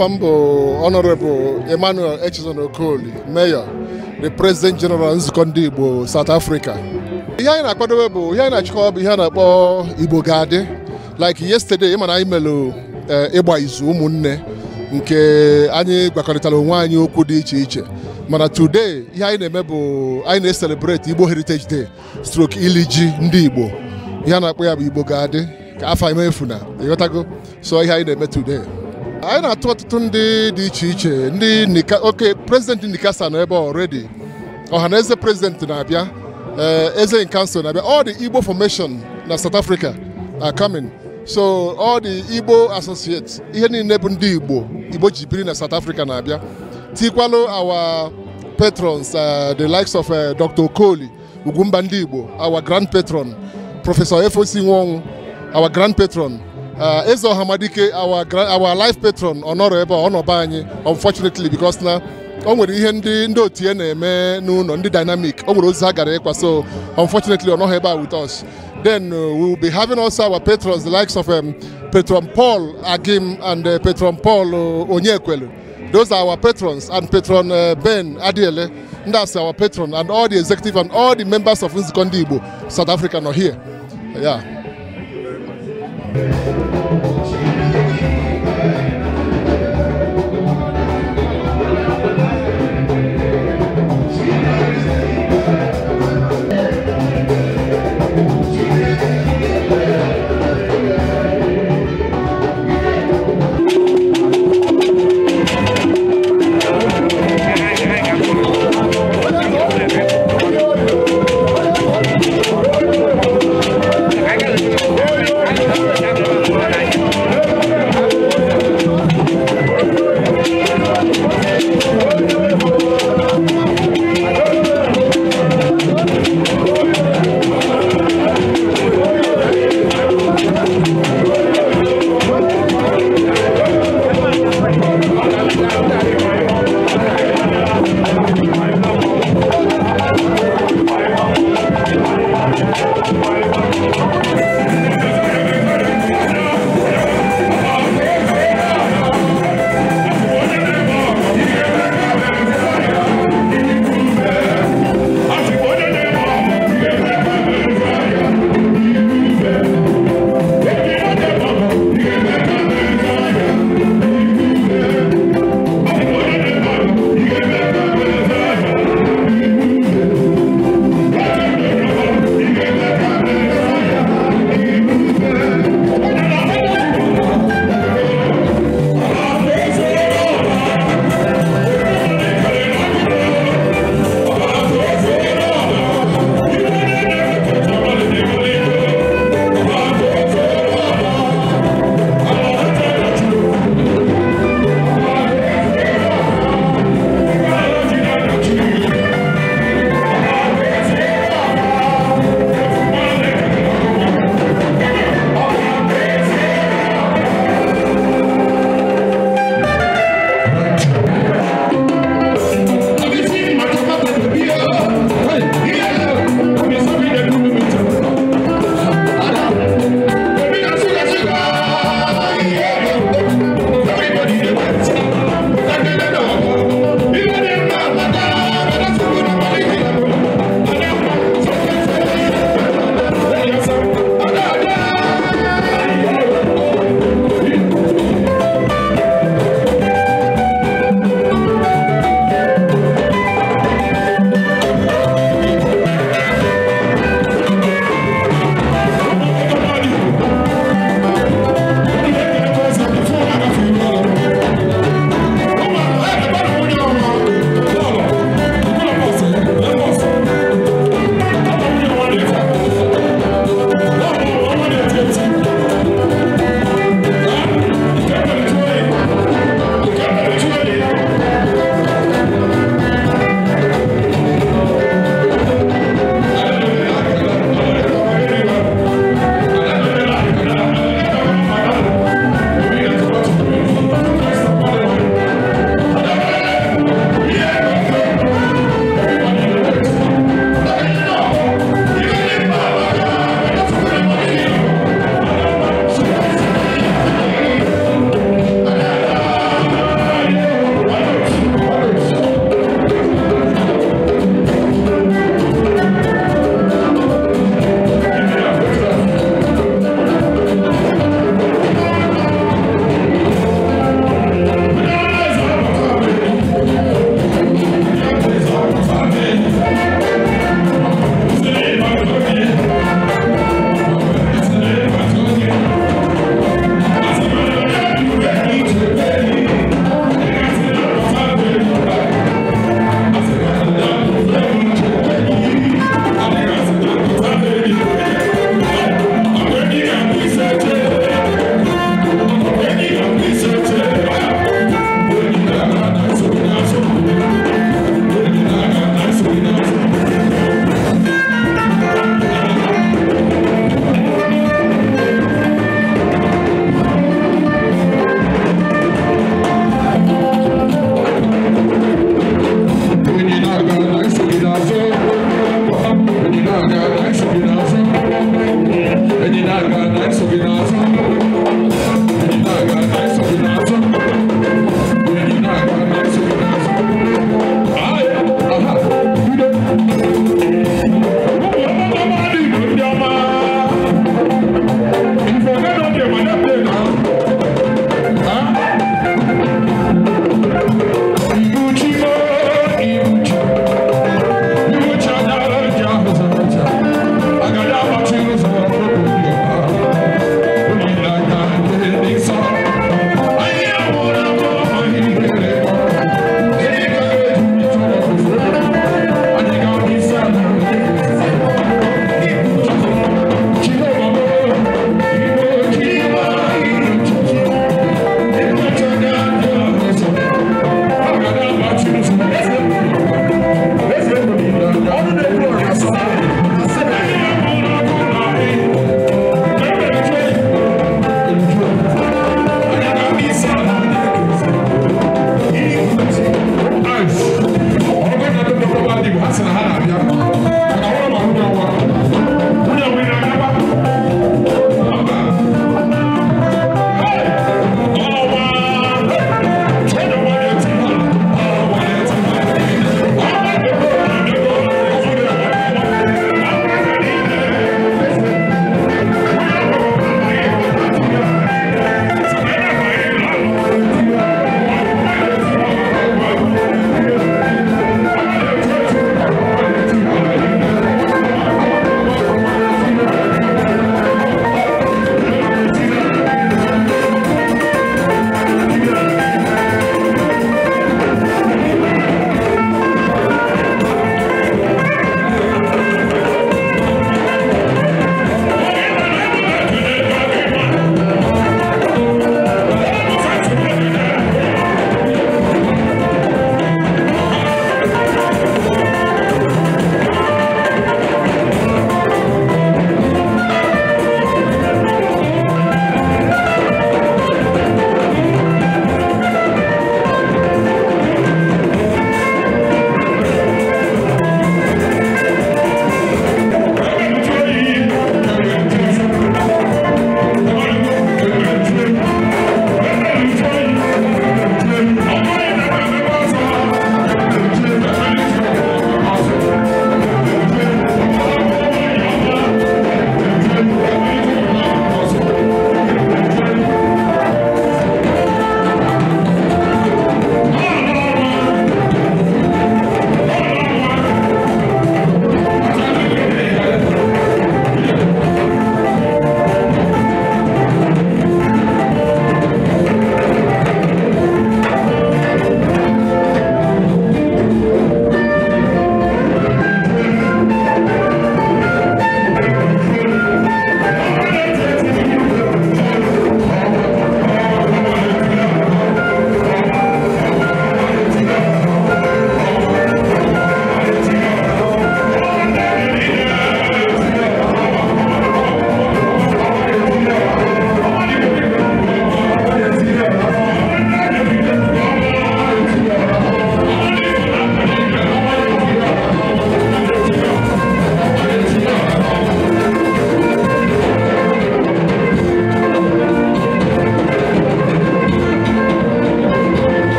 Afa bụ Honorable Emmanuel Echezon Okoli Mayor the President General Nzukọ Ndị Igbo South Africa ihe anyị na-akwadobe bụ ihe anyị na-achịkọ bụ ihe a na-akpọ Igbo ga-adị like yesterday ịma na anyị melụ eh, ịgba izu ụmụnne nke anyị gwakọrịtara onwe anyị okwu dị iche iche mana today ihe anyị na-eme bụ anyị na-eselebrate Igbo Heritage Day stroke ili ji ndị Igbo ihe a na-akpọ ya bụ Igbo ga-adị ka afọ emefuna ịghọtago so ihe anyị na-eme today anyị na-atụ ọtụtụ ndị dị iche iche ndị nika oke prezidenti nikasa nọ ebe already ọhaneze prezidenti na-abịa eh, eze nkansụl na-abịa all the igbo formation na south africa are coming so all the igbo associates ihe niile bụ ndị igbo igbo ji biri na south africa na-abịa tikwalụ our patrons eh, the likes of eh, dr okoli ugwumba ndị igbo our grand patron prọfesọ efosi nwanwụ our grand patron Uh, Eze Ọhamadike our our life patron ọ nọrọ ebe ọ nọba anyị unfortunately because na o nwere ihe ndị ndị otu ya na-eme n'ụlọ ndị dynamic o nwere ozi ha gara ịkwa so unfortunately ọ nọghị ebe a with us then uh, we will be having also our patrons the likes of um, patron Paul Agim and uh, patron Paul uh, Onyekwelu those are our patrons and patron uh, Ben Adiele and that's our patron and all the executive and all the members of Nzukọ Ndị Igbo South Africa are here yeah.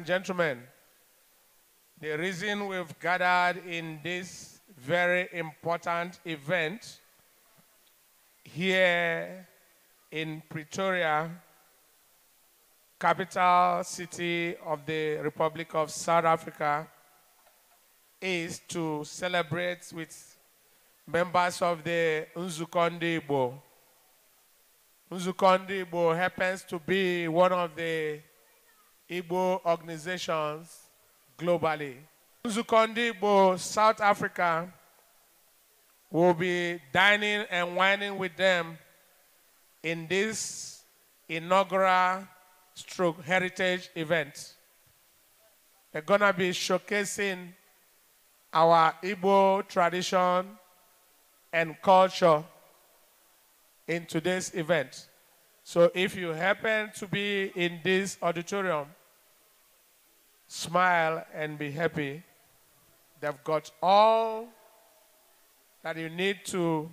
and gentlemen, the reason we've gathered in this very important event here in Pretoria, capital city of the Republic of South Africa, is to celebrate with members of the Nzukonde Igbo. happens to be one of the Igbo organizations globally. Nzukọ Ndị Igbo South Africa will be dining and wining with them in this inaugural stroke heritage event. They're going to be showcasing our Igbo tradition and culture in today's event. So if you happen to be in this auditorium, smile and be happy. They've got all that you need to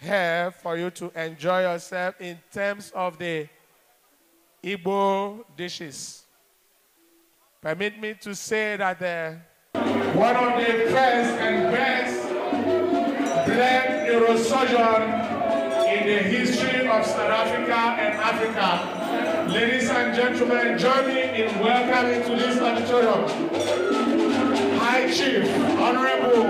have for you to enjoy yourself in terms of the Igbo dishes. Permit me to say that the, one of the first and best black neurosurgeon in the history of South Africa and Africa Ladies and gentlemen, join me in welcoming to this auditorium High Chief Honorable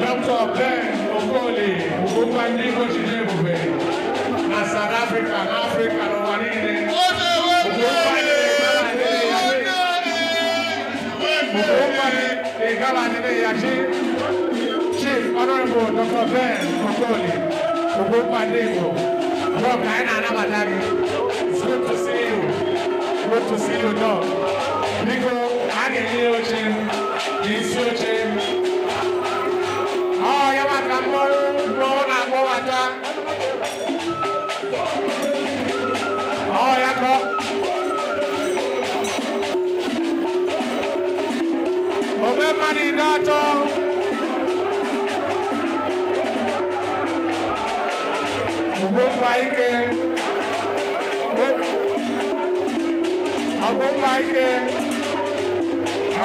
Dr. Ben Okoli Ugobandigoshidebube na South Africa, Africa, n'ụwa niile. Chief Honorable Dr. Ben Okoli Ugobandigo. Bro, ka anyị na-anabata gị. good to see you dog. Biko, a ga-enye oche n'isi oche ọ ya maka mmọrụ mgbe ọ na-akpọbata ọ ya agụma ike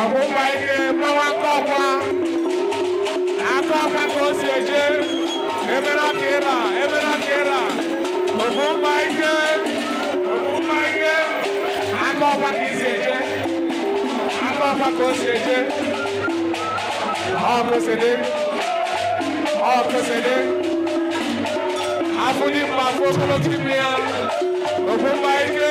agụma ike gbawa akọkwa aka ọka ka o si eje ebere aka ịra ebere aka ịra ogụma ike ogụma ike aka ọkwa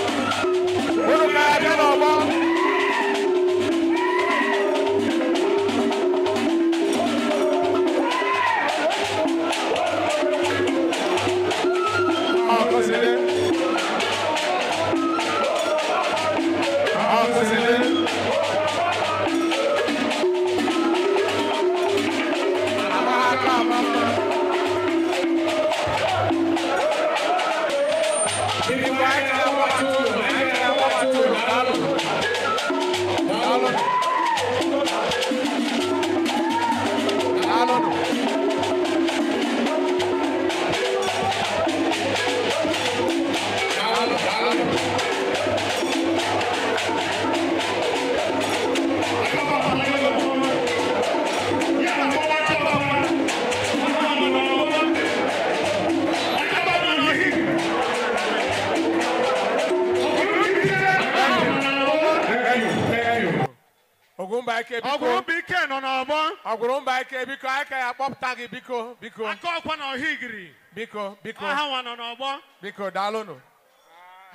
biko aha nwa nọ n'ọgbọ biko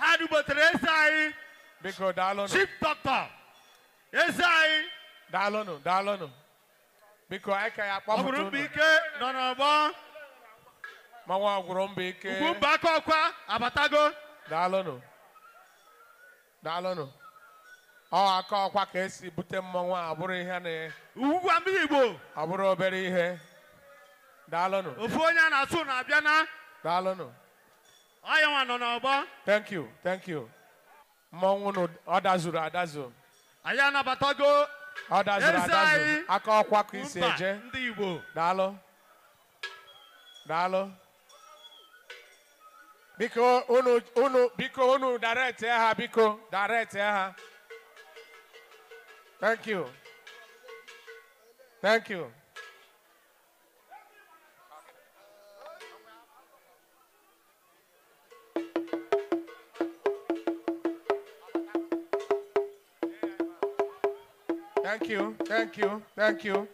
ha dubotere eze anyị biko chief doctor eze anyị daalụnụ daalụnụ biko aka ya kpọpụta nọ n'ọgbọ manwa ọgwụrụmbaike ugwumba aka ọkwa abatago daalụnụ daalụnụ ọ aka ọkwa ka esi bute mmanwụ a bụrụ ihe na igbo ọ bụrụ obere ihe daalụnụ ofu onye a na-asụ na-abịa na na daalụnụ ọyanwa nọ n'ọgbọ thank you thank you mmọnwụ nụ ọ dazuru adazu anyị anabatago ọ dazuru adazu aka ọkwa ka isi eje ndị Igbo daalụ daalụ biko unu unu biko unu direct ha biko direct ha thank you thank you Thank you. Thank you. Thank you.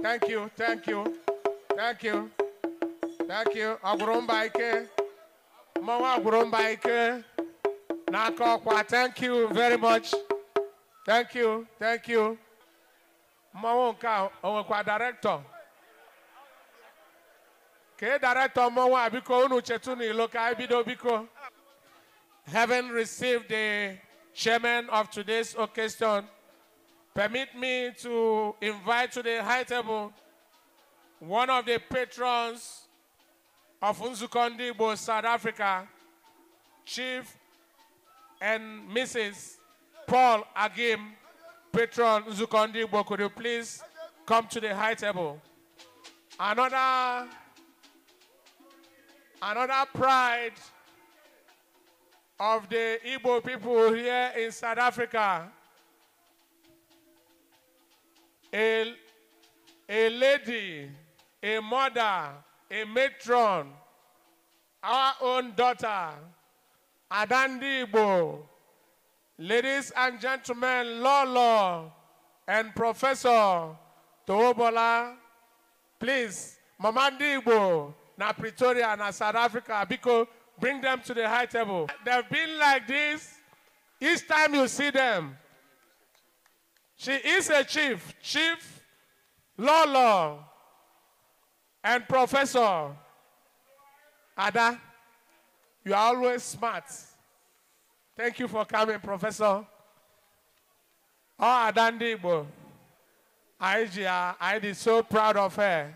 Thank you. Thank you. Thank you. Thank you. Agwurumba ike. Mmawa agwurumba ike. N'aka Thank you very much. Thank you. Thank you. Mmanwụ nke a director. Kee director mmanwụ a biko unu chetu n'ilo ka biko. Having received the chairman of today's occasion. Permit me to invite to the high table one of the patrons of Unzukondibo, South Africa, Chief and Mrs. Paul Agim, patron Unzukondibo. Could you please come to the high table? Another, another pride of the Igbo people here in South Africa a, a lady, a mother, a matron, our own daughter, Adandibo, ladies and gentlemen, Lolo, and Professor Toobola, please, Mama Ndibo, na Pretoria, na South Africa, Biko, bring them to the high table. They've been like this each time you see them. She is a chief, chief, law law, and professor. Ada, you are always smart. Thank you for coming, professor. Oh, Adandibo. Aijia, I am so proud of her.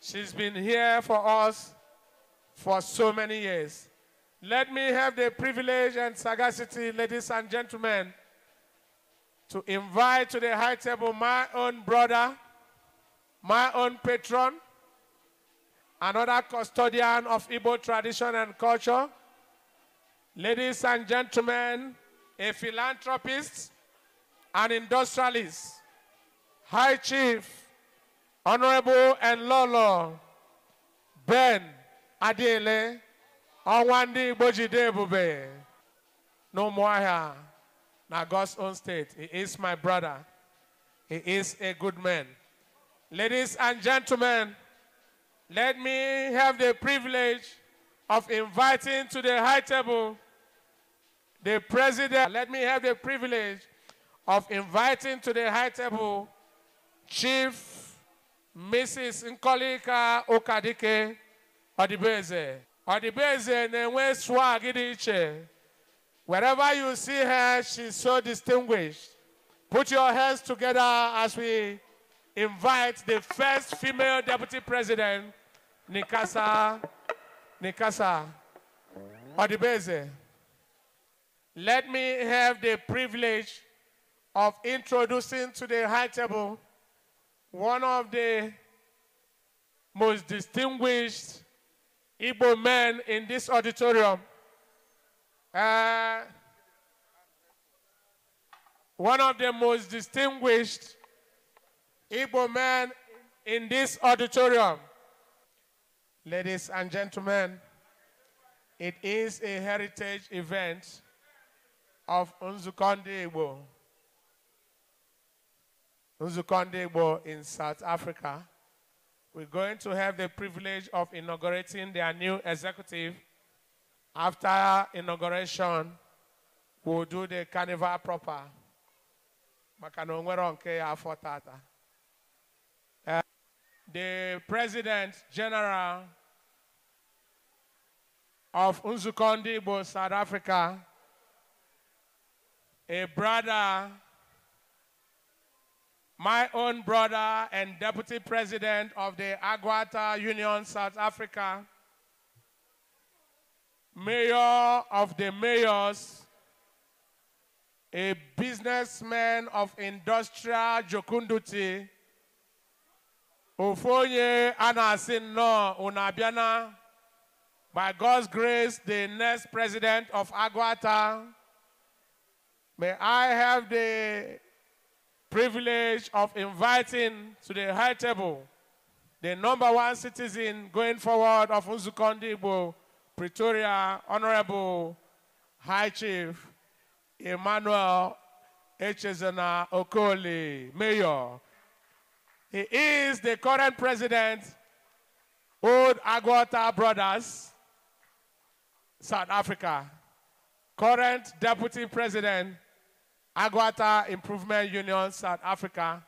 She's been here for us for so many years. Let me have the privilege and sagacity, ladies and gentlemen, to invite to the high table my own brother, my own patron, another custodian of Igbo tradition and culture, ladies and gentlemen, a philanthropist, an industrialist, High Chief, Honorable and Lolo, Ben Adele Onwandi Bojidebube, no more here. Now, God's own state. He is my brother. He is a good man. Ladies and gentlemen, let me have the privilege of inviting to the high table the president. Let me have the privilege of inviting to the high table Chief Mrs. Nkolika Okadike Odibeze. Odibeze na-enwe swag Wherever you see her, she's so distinguished. Put your hands together as we invite the first female deputy president, Nikasa, Nikasa Odibeze. Let me have the privilege of introducing to the high table one of the most distinguished Igbo men in this auditorium, uh, one of the most distinguished Igbo men in this auditorium. Ladies and gentlemen, it is a heritage event of Unzukonde Igbo. Unzukonde Igbo in South Africa. We're going to have the privilege of inaugurating their new executive after inauguration, we'll do the carnival proper. ya eh, the president general of Unzukonde south africa a brother my own brother and deputy president of the agwata union south africa mayor of the mayors, a businessman of industrial jokunduti, Ofonye Anasin Unabiana, by God's grace, the next president of Aguata, may I have the privilege of inviting to the high table the number one citizen going forward of Uzukondibo, Pretoria Honorable High Chief Emmanuel Echezana Okoli, Mayor. He is the current president Old Agwata Brothers, South Africa. Current deputy president, Agwata Improvement Union, South Africa.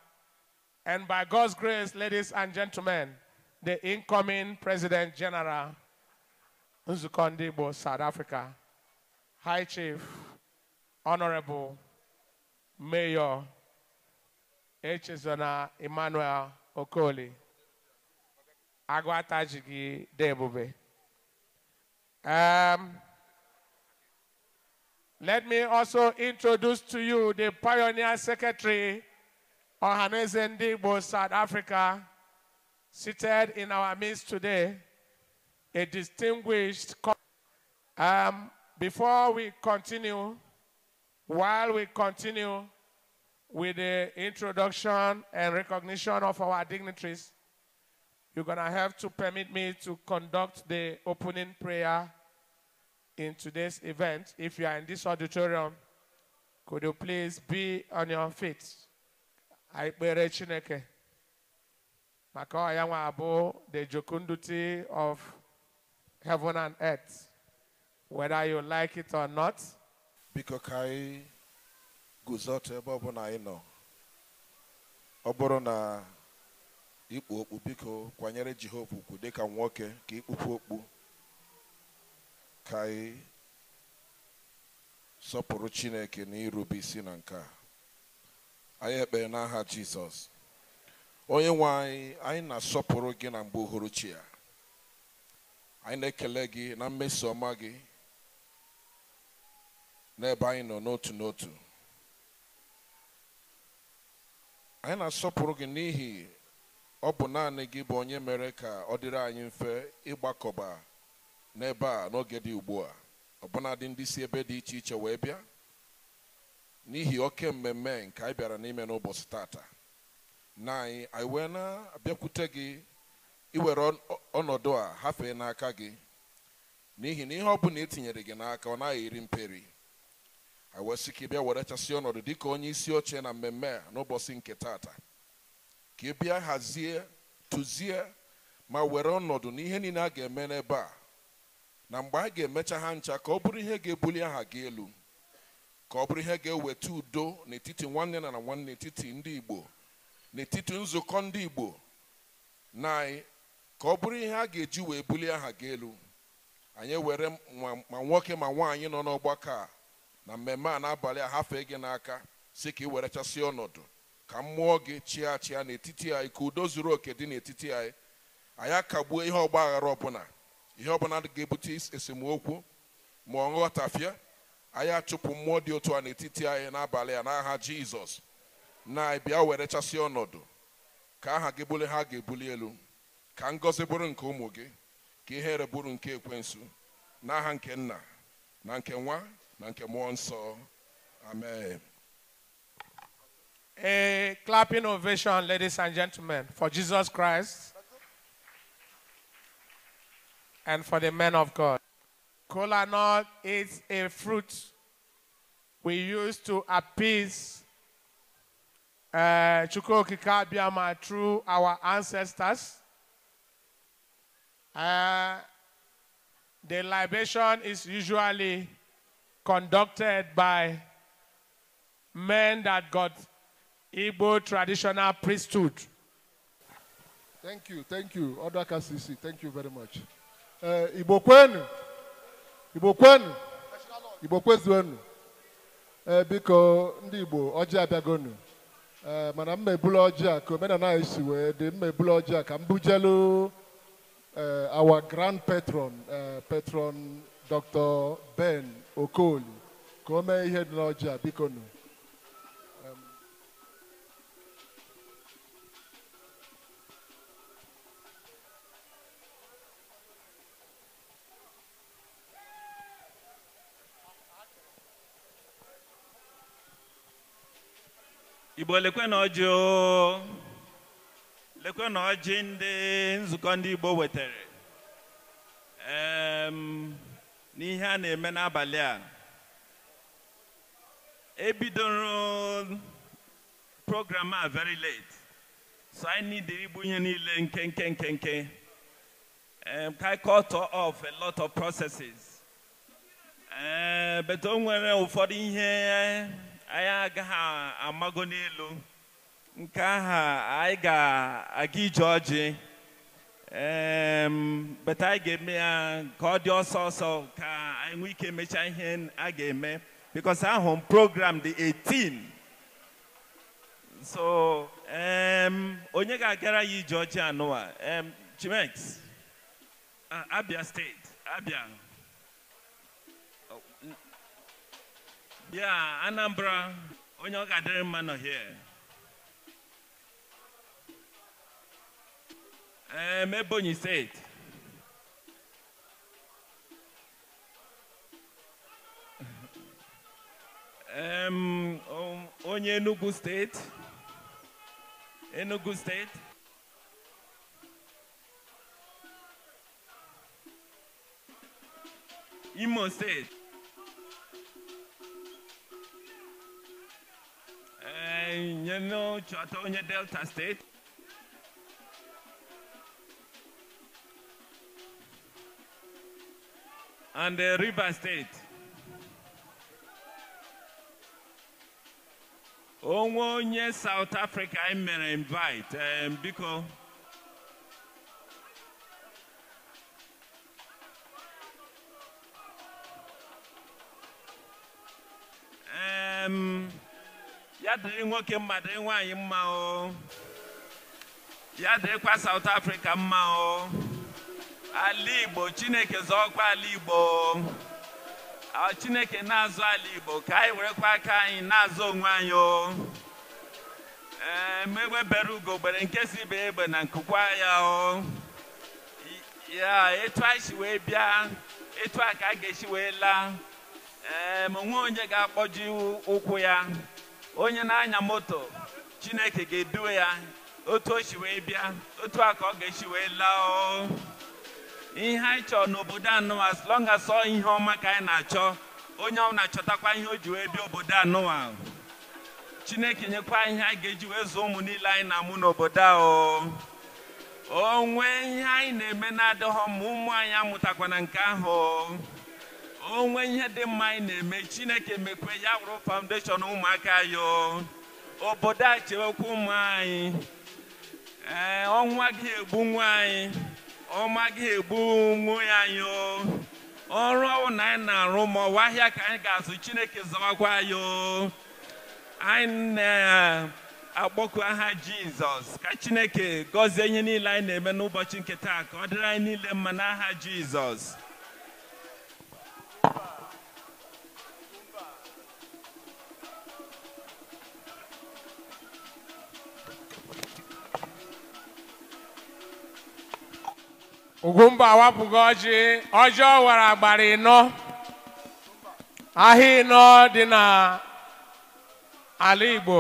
And by God's grace, ladies and gentlemen, the incoming president general nzukọ ndị igbo south africa high chief honorable mayor echezona emmanuel okoli Agwa gị dị um, let me also introduce to you the pioneer secretary Ohanese Ndigbo South Africa seated in our midst today a distinguished. Um, before we continue, while we continue with the introduction and recognition of our dignitaries, you're going to have to permit me to conduct the opening prayer in today's event. If you are in this auditorium, could you please be on your feet? I pray Chineke. Maka ọya the jokunduti of heaven and earth, whether you like it or not. biko ka anyị guzote ebe ọbụla anyị nọ ọ bụrụ na ikpu okpu biko kwanyere jehova ukwu dịka nwoke ka ikpukwu okpu ka anyị sọpụrụ chineke na irubi isi na nke a anyị ekpere n'aha jizọs onye nwe anyị anyị na-asọpụrụ gị na mgbe uhuruchi ya anyị na-ekele gị na mmeso ọma gị n'ebe anyị nọ n'otu n'otu anyị na-asọpụrụ gị n'ihi ọ bụ naanị gị bụ onye mere ka ọ dịrị anyị mfe ịgbakọba n'ebe a n'oge dị ugbu a ọbụnadị ndị si ebe dị iche iche wee bịa n'ihi oke mmemme nke anyị bịara n'ime n'ụbọchị tata na anyị anyị wee na-abịakwute gị iwere ọnọdụ a hafee n'aka gị n'ihi na ihe ọ bụla etinyere gị n'aka ọ naghị eri mperi a ka ị bịa were chasị ọnọdụ dịka onye isi oche na mmemme a n'ụbọchị nke taata ka ị bịa hazie tụzie ma were ọnọdụ n'ihe niile a ga-eme n'ebe a na mgbe a ga-emecha ha ncha ka ọ bụrụ ihe ga-ebuli aha gị elu ka ọ bụrụ ihe ga-eweta udo n'etiti nwanne na nwanne etiti ndị Igbo n'etiti nzukọ ndị Igbo na ka ọ bụrụ ihe a ga-eji wee bulie aha gị elu anyị were ma nwoke ma nwaanyị nọ n'ọgbakọ a na mmemme a n'abalị a hafee gị n'aka si ka ị were chasịa ọnọdụ ka mmụọ gị chịa chịa n'etiti anyị ka udo zuru oke dị n'etiti anyị anyị akagbuo ihe ọgba aghara ọbụla ihe ọbụla ga-ebute esemokwu ma ọ nghọtafịa anyị achụpụ mmụọ dị otu a n'etiti anyị n'abalị a n'aha jizọs na bịa were chasịa ọnọdụ ka aha gị bụlie ha ga-ebuli elu ka ngọzi bụrụ nke ụmụ gị ka ihere bụrụ nke ekwensu n'aha nke nna na nke nwa na nke mmụọ nsọ amen A clapping ovation, ladies and gentlemen, for Jesus Christ and for the men of God. Kola nut is a fruit we use to appease uh, Chukwokika through our ancestors. Uh, the libation is usually conducted by men that got Igbo traditional priesthood. Thank you, thank you, Odaka Sisi. Thank you very much. Uh, Igbo kwenu, Igbo kwenu, Igbo kwezuenu. Uh, biko ndị Igbo ọjị abịagonu. Uh, mana m mebulu ọjị a ka omenala anyị wee dị m mebulu ọjị uh, our grand patron, uh, patron Dr. Ben Okoli, come here mee Bikono. na lekwe na ọjị ndị nzukọ ndị Igbo wetara n'ihe a na-eme n'abalị a ebidoro program a very late so anyị to igbu ihe niile nke nke nke nke ka cut off a lot of processes ee beto nwere ụfọdụ ihe anyị agaghị amago n'elu nke aha anyị ga-aga ije ọjị beta anyị ga-eme ya ka ọ dị ọsọ ọsọ ka anyị nwee ike mechaa ihe a ga-eme because ahụ m program dị 18 so onye ga-agara ya ije ọjị anụwa Chimex Abia steeti Abia oh, bịa Anambra onye ọ ga-adịrị mma nọ here Um, Ebony said. um, Onye Enugu State. Enugu State. Imo State. Uh, eh, you know, Chateau Delta State. and the River State. onwe onye South Africa anyị mere invite um, biko um, ya dịrị nwoke mmadụ dịrị nwaanyị mma ya dịrịkwa South Africa mma o ala igbo chineke zọọkwa ala igbo chineke na-azụ ala igbo ka anyị werekwa aka anyị na-azụ onwe anyị o ee megwebere ugo gbere nke si be egbe na nkụkwa ya o ya etu anyị si wee bịa etu a ka a ga-esi wee laa ee ma onye ga-akpọji ụkwụ ya onye na-anya moto chineke ga-eduwe ya otu o si wee bịa otu a ka ọ ga-esi wee laa o ihe anyị chọrọ n'obodo anụwa as long as ihe ọma ka anyị na-achọ onye ọ na-achọtakwa ihe o ji wee bịa obodo anụwa chineke nyekwa ihe anyị ga-eji wee zụọ ụmụ niile anyị na-amụ n'obodo ahụ o nwee ihe anyị na-eme na-adịghọ ma ụmụ anyị amụtakwana nke ahụ o nwee ihe dị mma anyị na-eme chineke mekwe ya wụrụ foundation ụmụaka ya obodo a chewekwa ụmụ anyị ee ọnwa gị egbu nwa anyị ọma ga ya anyị ọrụ ọwụ na anyị na-arụ ma ahịa ka anyị ga-azụ chineke zọwakwa anyị anyị na akpọku aha jizọs ka chineke gọzie ihe niile anyị na-eme n'ụbọchị nke taa ka ọ dịrị anyị niile mma n'aha jizọs Ugwumba awapụghị ọjị ọjị ọ wara agbara ịnọ ahịa ịnọ dị n'ala Igbo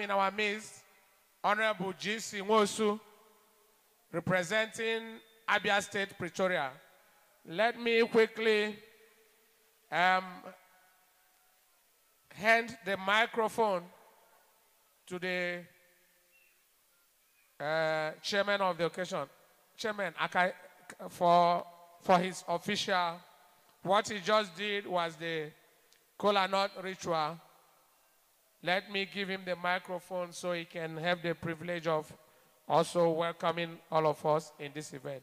in our midst, Honorable G.C. Nwosu, representing Abia State, Pretoria. Let me quickly um, hand the microphone to the uh, chairman of the occasion, Chairman Akai, for, for his official. What he just did was the Kola Nut ritual let me give him the microphone so he can have the privilege of also welcoming all of us in this event.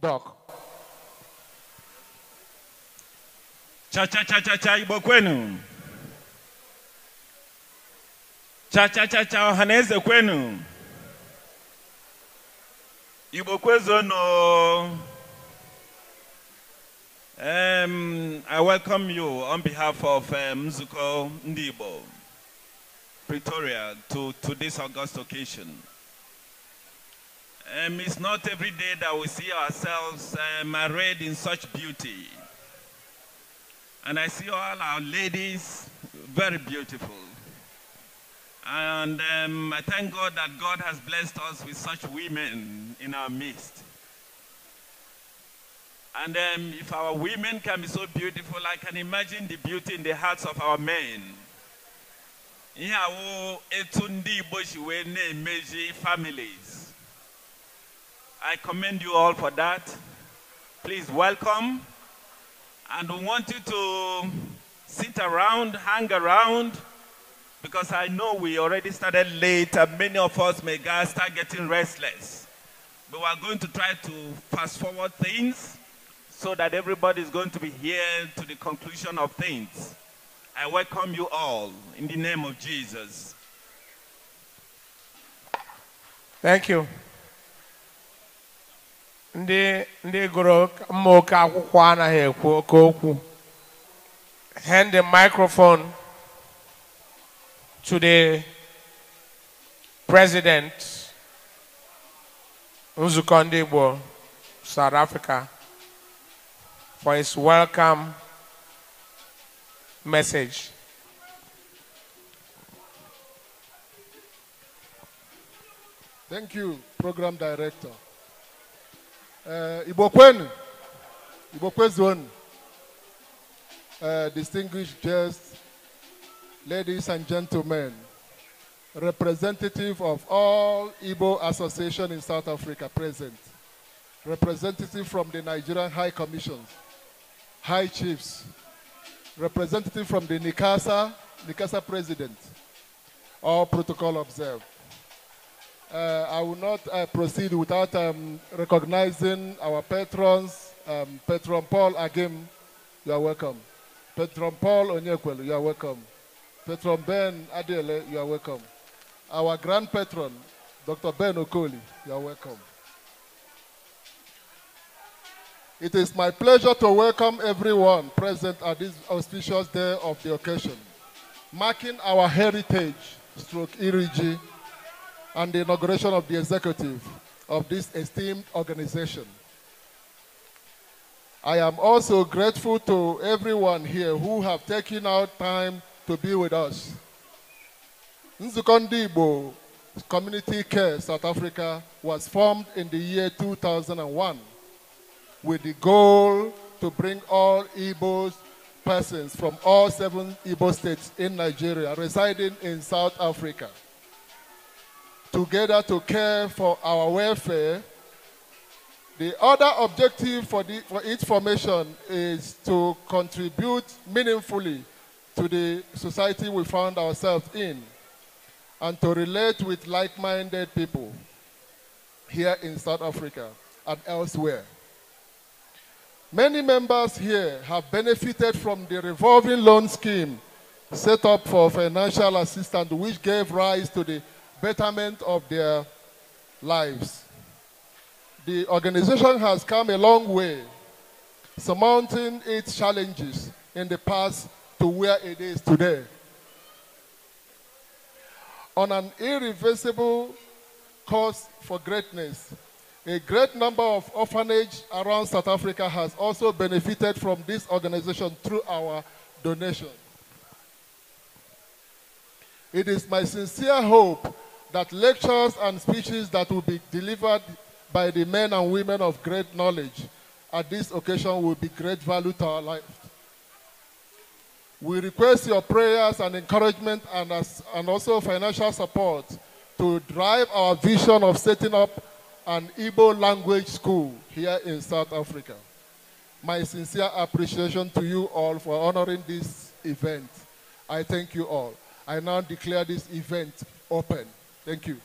Doc. Cha cha cha cha cha ibo kwenu. Cha cha cha cha ohaneze kwenu. Igbo no. Um, I welcome you on behalf of um, Mzuko Ndibo. Pretoria to, to this august occasion. Um, it's not every day that we see ourselves um, arrayed in such beauty. And I see all our ladies very beautiful. And um, I thank God that God has blessed us with such women in our midst. And um, if our women can be so beautiful, I can imagine the beauty in the hearts of our men ihe awụ etu ndị families I commend you all for that please welcome and we want you to sit around hang around because I know we already started late and many of us may start getting restless but we're going to try to fast forward things so that everybody is going to be here to the conclusion of things. I welcome you all in the name of Jesus. Thank you. Ndị ndị gụrụ mmaoke akwụkwọ anaghị ekwu oke okwu. Hand the microphone to the president Nzukọ Ndị Igbo, South Africa, for his welcome message. Thank you, Program Director. Uh, Ibokwen, uh, distinguished guests, ladies and gentlemen, representative of all Igbo association in South Africa present, representative from the Nigerian High Commission, High Chiefs, representative from the Nikasa, Nikasa president. All protocol observed. Uh, I will not uh, proceed without um, recognizing our patrons. Um, Patron Paul Agim, you are welcome. Patron Paul Onyekwelu, you are welcome. Patron Ben Adele, you are welcome. Our grand patron, Dr. Ben Okoli, you are welcome. It is my pleasure to welcome everyone present at this auspicious day of the occasion, marking our heritage stroke IRIGI and the inauguration of the executive of this esteemed organization. I am also grateful to everyone here who have taken out time to be with us. Nzukọ Ndị Community Care South Africa was formed in the year 2001 with the goal to bring all Igbo persons from all seven Igbo states in Nigeria residing in South Africa together to care for our welfare. The other objective for, the, for its formation is to contribute meaningfully to the society we found ourselves in and to relate with like-minded people here in South Africa and elsewhere. Many members here have benefited from the revolving loan scheme set up for financial assistance, which gave rise to the betterment of their lives. The organization has come a long way, surmounting its challenges in the past to where it is today. On an irreversible course for greatness, a great number of orphanages around South Africa has also benefited from this organization through our donations. It is my sincere hope that lectures and speeches that will be delivered by the men and women of great knowledge at this occasion will be great value to our life. We request your prayers and encouragement and, as, and also financial support to drive our vision of setting up an Igbo language school here in South Africa. My sincere appreciation to you all for honoring this event. I thank you all. I now declare this event open. Thank you.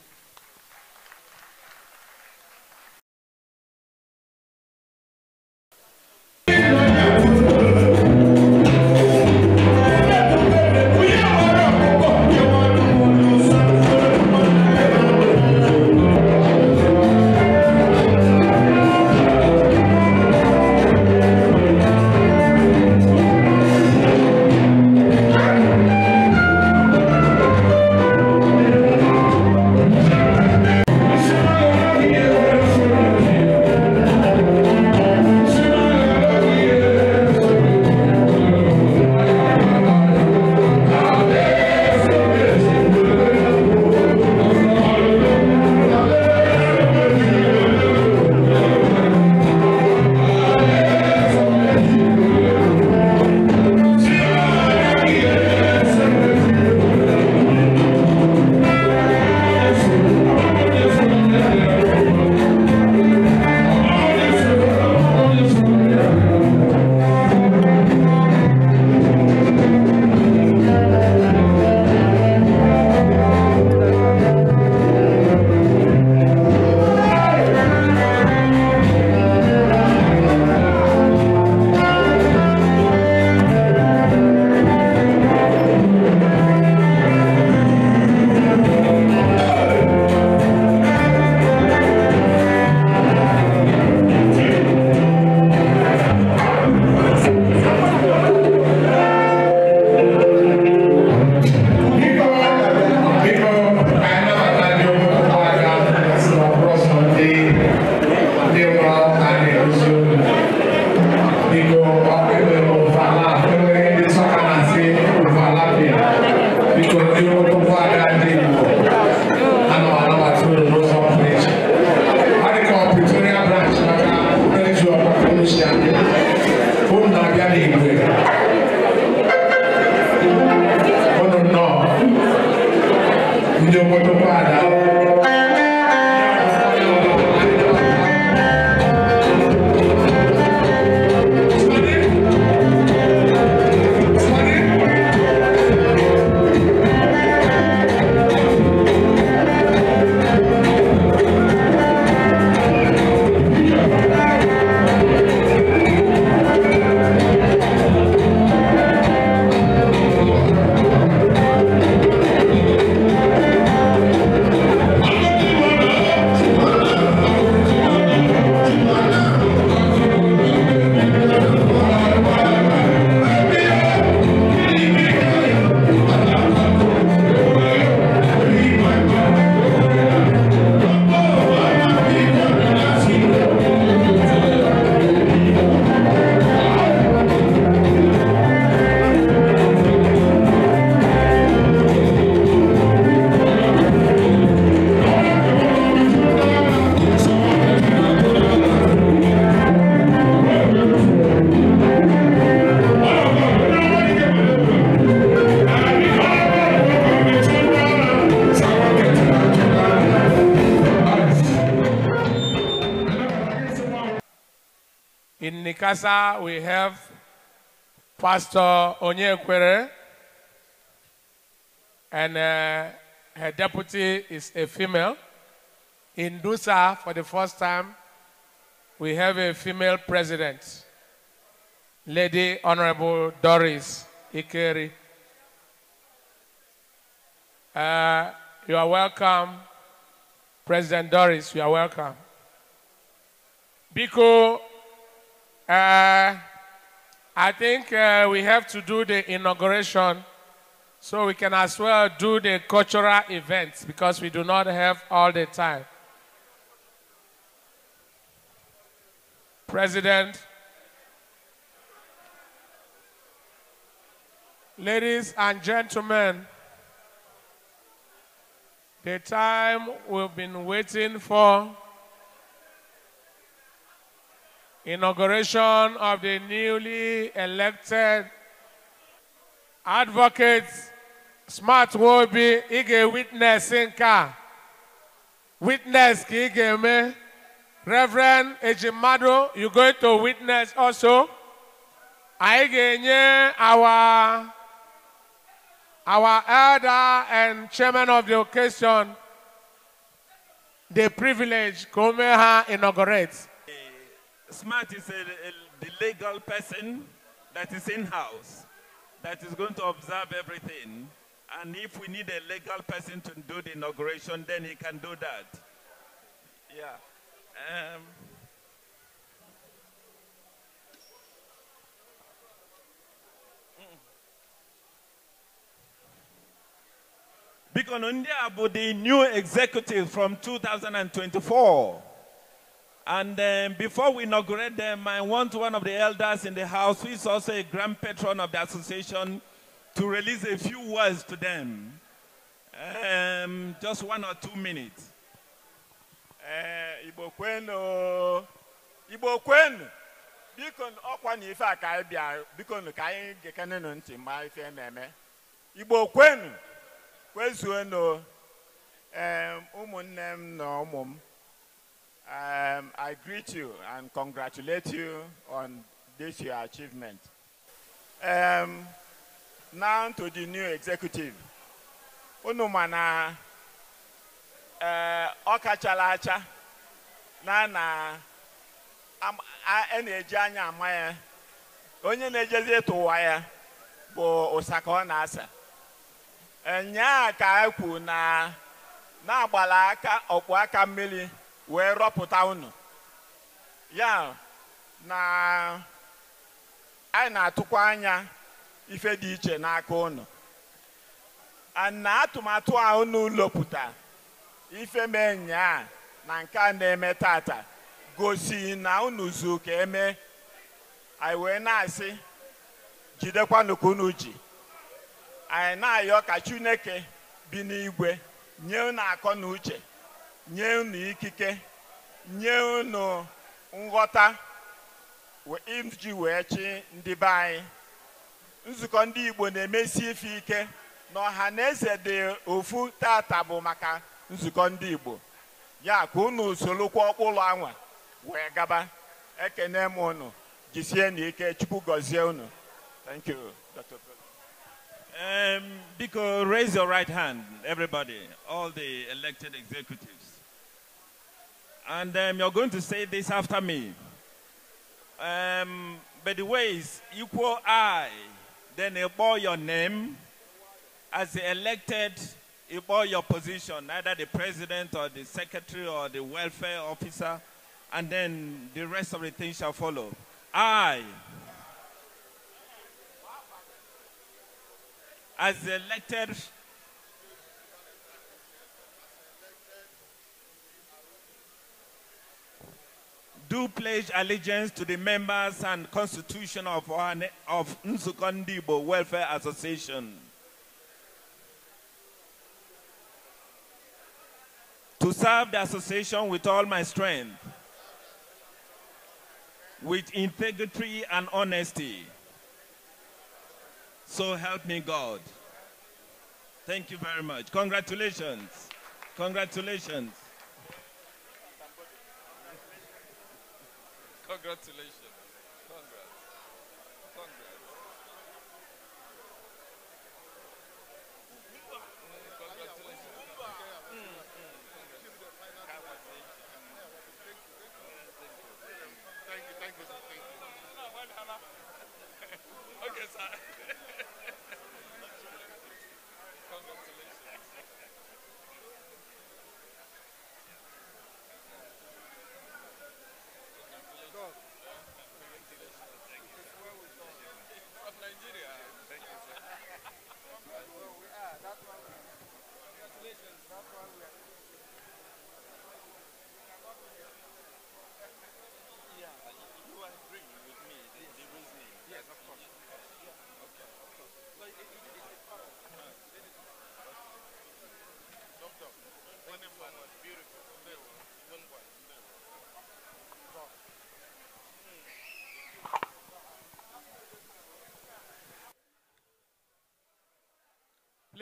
we have Pastor Onyekwere, and uh, her deputy is a female. In Dusa, for the first time, we have a female president, Lady Honorable Doris Ikeri. Uh, you are welcome, President Doris, you are welcome. Biko I think uh, we have to do the inauguration so we can as well do the cultural events because we do not have all the time. President, ladies and gentlemen, the time we've been waiting for inauguration of the newly elected advocate Smart Wobi Ige Witness Inka. Witness ka me, Reverend Ejimado, you're going to witness also. Ige our, our elder and chairman of the occasion the privilege come o inaugurate. SMART is a, a, the legal person that is in-house, that is going to observe everything. And if we need a legal person to do the inauguration, then he can do that. Yeah. Um, Biko Nundia will be new executive from 2024. And um, before we inaugurate them, I want one of the elders in the house, who is also a grand patron of the association, to release a few words to them. Um, just one or two minutes. Eh, Igbo kwenu, Igbo kwenu, biko ọkwa na ife a ka anyị bịa, biko ka anyị gekenenụ ntị Um, I greet you and congratulate you on this your achievement. Um, now to the new executive. Unu na ọ uh, kachala na na a na-eji anya ama ya onye na-ejezi ịtụ ụwa ya bụ ụsaka ọ na-asa nyaa aka ekwu na na ọkpụ aka mmiri wee rọpụta unu ya na anyị na-atụkwa anya ife dị iche n'aka unu na atụmatụ a unu lopụta ife mee nyaa na nke a na-eme tata gosi na unu zu ka eme anyị wee na-asị jidekwanụ ka unu ji anyị na-ayọ ka Chineke bi n'igwe nye unu akọ na uche nye unu ikike nye unu nghọta iji wee chi ndị be anyị nzukọ ndị Igbo na-emesi ife ike na ọha na eze dị ofu tata bụ maka nzukọ ndị Igbo ya ka unu solokwa ụlọ anwa wee gaba ekene m unu jisie na ike Chukwu gọzie unu Biko, raise your right hand, and um, you're going to say this after me. Um, but the ways equal I, then they bore your name as the elected, you bore your position, either the president or the secretary or the welfare officer, and then the rest of the things shall follow. I, as the elected do pledge allegiance to the members and constitution of, our, of Nsukondibo Welfare Association. To serve the association with all my strength, with integrity and honesty. So help me God. Thank you very much. Congratulations. Congratulations. Congratulations.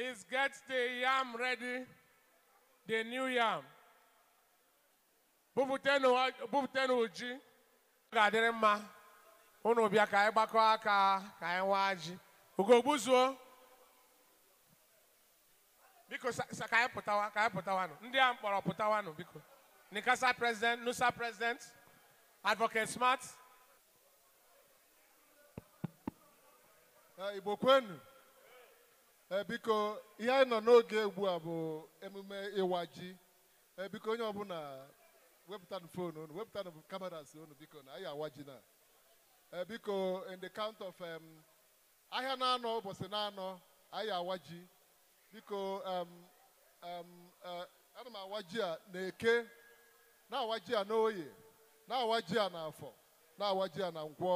Please get the yam ready, the new yam. Bupụtenụ ji ga-adịrị mma unu bịa ka anyị aka ka anyị nwaa ji ugogbuzuo biko ka anyị pụtawa ka anyị pụtawanụ ndị a mkpọrọ pụtawanụ biko Nikasa president Nusa president advocate smart Igbo kwenu Eh, biko ihe anyị nọ n'oge ugbu a bụ emume ịwa ji eh, biko onye ọbụla wepụtanụ fon unu wepụtanụ kameras unu biko na anyị awa ji na eh, biko in the count of ahịa na-anọ ụbọchị na-anọ anyị awa ji biko ana m awa ji a na eke na-awa ji a n'oye na-awa ji a n'afọ na-awa ji a na ngwọ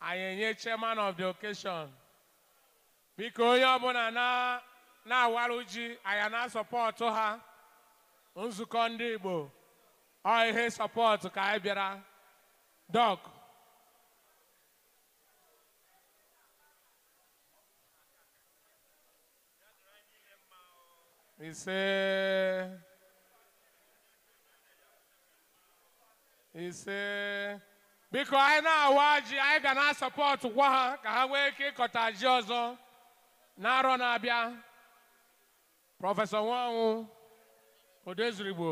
anyị enye chairman of the occasion biko onye ọbụla na-awarụ ji anya na sọpọtụ ha nzukọ ndị Igbo ọ ihe sọpọtụ ka anyị bịara dọk ise ise biko anyị na-awa ji anyị ga na-asọpọtụ kwa ha ka ha nwee ike ịkọta ji ọzọ n'arọ na-abịa prọfesọ nwanwụ odezurigbo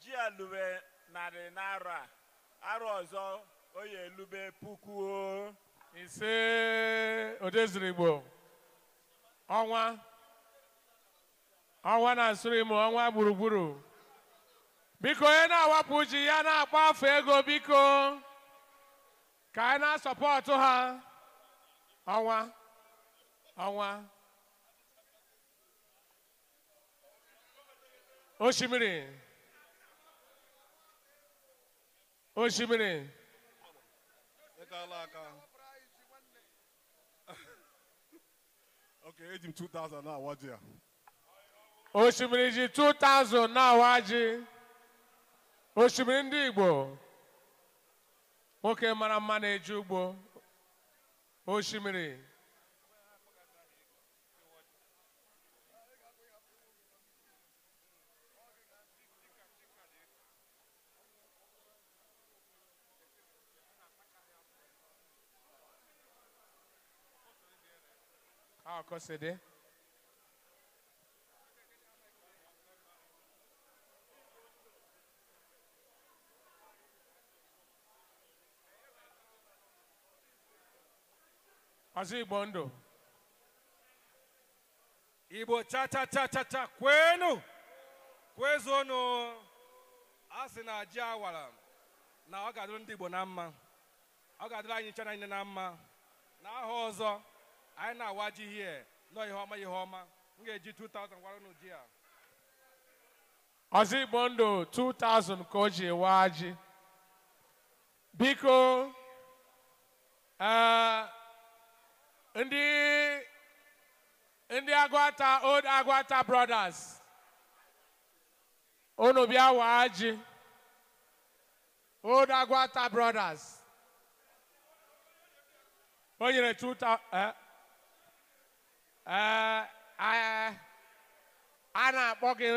ji alube narị n'arọ a arọ ọzọ oyi elube puku ise odezurigbo ọnwa ọnwa na Nsurim ọnwa gburugburu biko onye na-awapụ ji ya na akpọ afọ ego biko ka anyị na-asọpọtụ ha ọnwa ọnwa osimiri osimiri okay eji m 2000 na-awaji ya osimiri ji 2000 na-awa ji osimiri ndị Igbo nwoke mara mma na-eji ugbo osimiri akọsịdị ọzọ igbo ndụ igbo chachachachacha kwenu kwezuonụ a sị na ji awara na ọ ga-adịrị ndị igbo na mma ọ ga-adịrị anyị nchana niile na mma na aha ọzọ anyị na-awa ji hie nọ ihe ọma ihe ọma m ga-eji 2000 gwara unu ji a ọzọ igbo ndụ 2000 ka o ji waa ji biko ee ndị ndị agwata old agwata brothers unu bịa waa ji old agwata brothers o nyere 2000 eh, eh, eh, a na-akpọ gị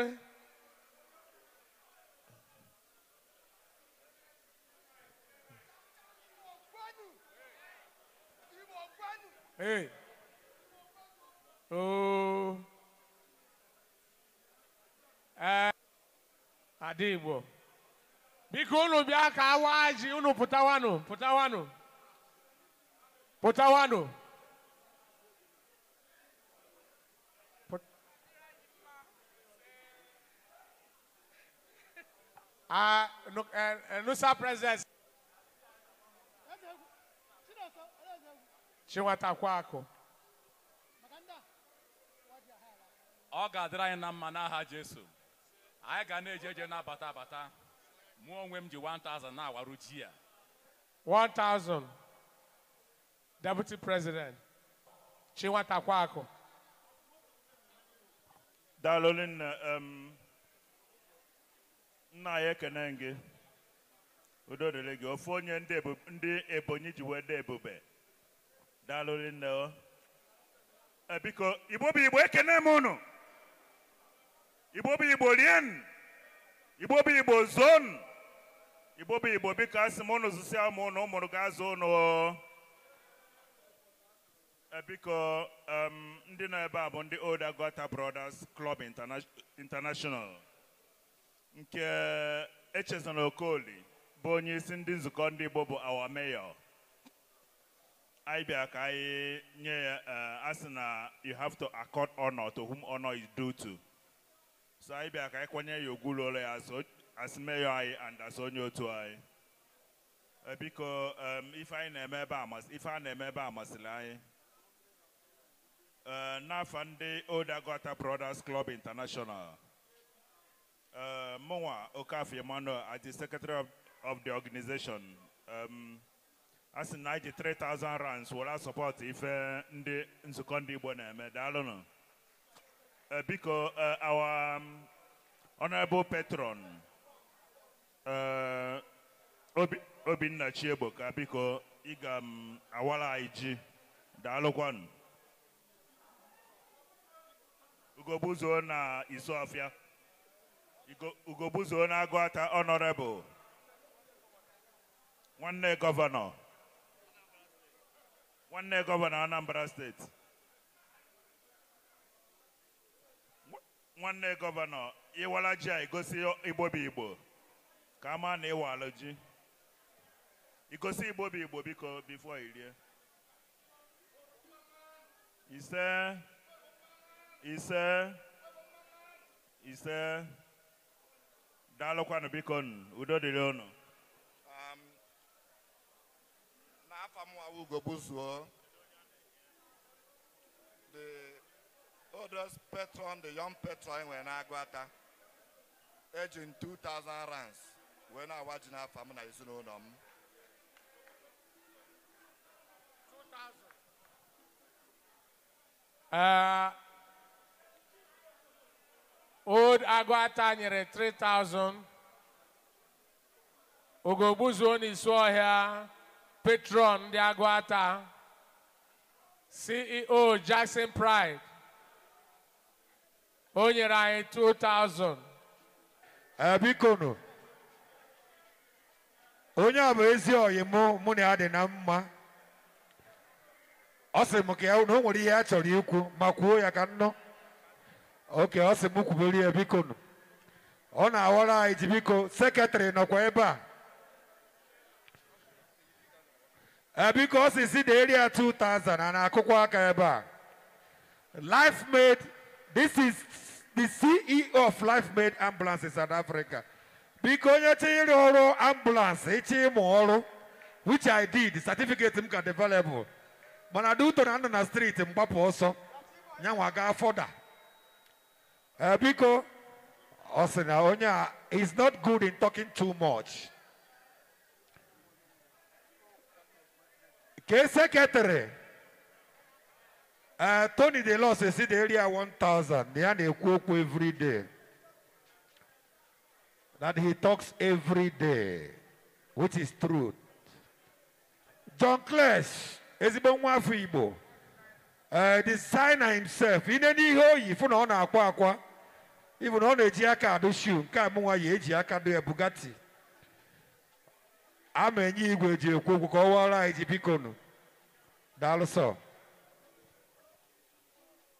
Hey. Oh. Eh. Adebo, Igbo. Biko unu bịa ka awa ji unu pụtawanụ pụtawanụ pụtawanụ. Ah, uh, look, uh, no, eh, eh, sir, presence. chinwatakwa akụ ọ ga-adịrị anyị na mma n'aha Jesu anyị ga na-eje eje na-abata abata mụ onwe m ji 1000 na-awaru ji ya 1000 Deputy President Chinwatakwa akụ daalụ nne nna anyị ekene gị udo dịrị gị ofu onye ndị ebonyi ji wee dị ebube daalụ nne biko igbo bụ igbo ekene m ụnụ igbo bụ igbo rien igbo bụ igbo zon igbo bụ igbo biko asị m ụnụ zụsịa m ụnụ ụmụrụ ga-azụ ụnụ biko ndị nọ ebe a bụ ndị Old Agụata Brothers Club International nke Echezona Okoli bụ onye isi ndị nzukọ ndị Igbo bụ awa meyọ I ka uh, anyị uh, you have to accord honor to whom honor is due to so I bịa ka anyị you ya ogwulu ụlọ ya asị meyo anyị and as onye to I. Uh, because um, ife anyi I na-eme ebe ife a na-eme ebe a masịrị Brothers Club International mụnwa Okafie Emmanuel as the secretary of the organization um, asị na anyị 3000 rands wụla sọpọtụ ife ndị nzukọ ndị Igbo na-eme daalụnụ eh, biko eh, our um, honorable patron eh, Obinna Chiegbo ka biko ị ga m um, awara anyị ji daalụkwanụ ugogbuzuo na Isuọfịa ugogbuzuo na honorable nwanne gọvanọ nwanne gọvanọ Anambra steeti nwanne gọvanọ ịwala uh, ji a igosi igbobi uh, igbo ka ama na ịwalụ ji igosi igbobi igbo biko bifo irie ise ise ise daalụkwanụ biko udo dịrị ọnụ. Ugo the oldest patron, the young patron wee na-agụ eji m 2000 rands wee na-awa ji n'afọ m na ezinụlọ m old agụata nyere 3000 ni n'isi here. patron ndị Agụata CEO Jackson Pride o nyere anyị 2000 bikonu onye a bụ ezi ọyị mụ mụ na ya dị na mma ọ sị m ka ya na nwere ihe a chọrọ ikwu ma kwuo ya ka nnọ oke ọ sị m kwubere ya ọ na-awara anyị ji biko sekretarị nọkwa ebe a Uh, because it's in the area 2000 and i aka ebe a life made this is the ceo of life made ambulance in south africa biko you chinyere ọrụ ambulance ịchọ which i did The certificate is available. But I do turn on the street in ọsọ nyanwa gaa fọda uh, biko ọ sị na onye a is not good in talking too much Kese Ketere. Uh, Tony De Los is the area 1000. They are the every day. That he talks every day, which is truth. John Clash is been one Uh, the signer himself, in any way, if you know, even on a know, the shoe, Kamuwa, Jiaka, the Bugatti. ama enye igwe ji ekwu okwu ka ọ wara anyị ji bikonu daalụ sọ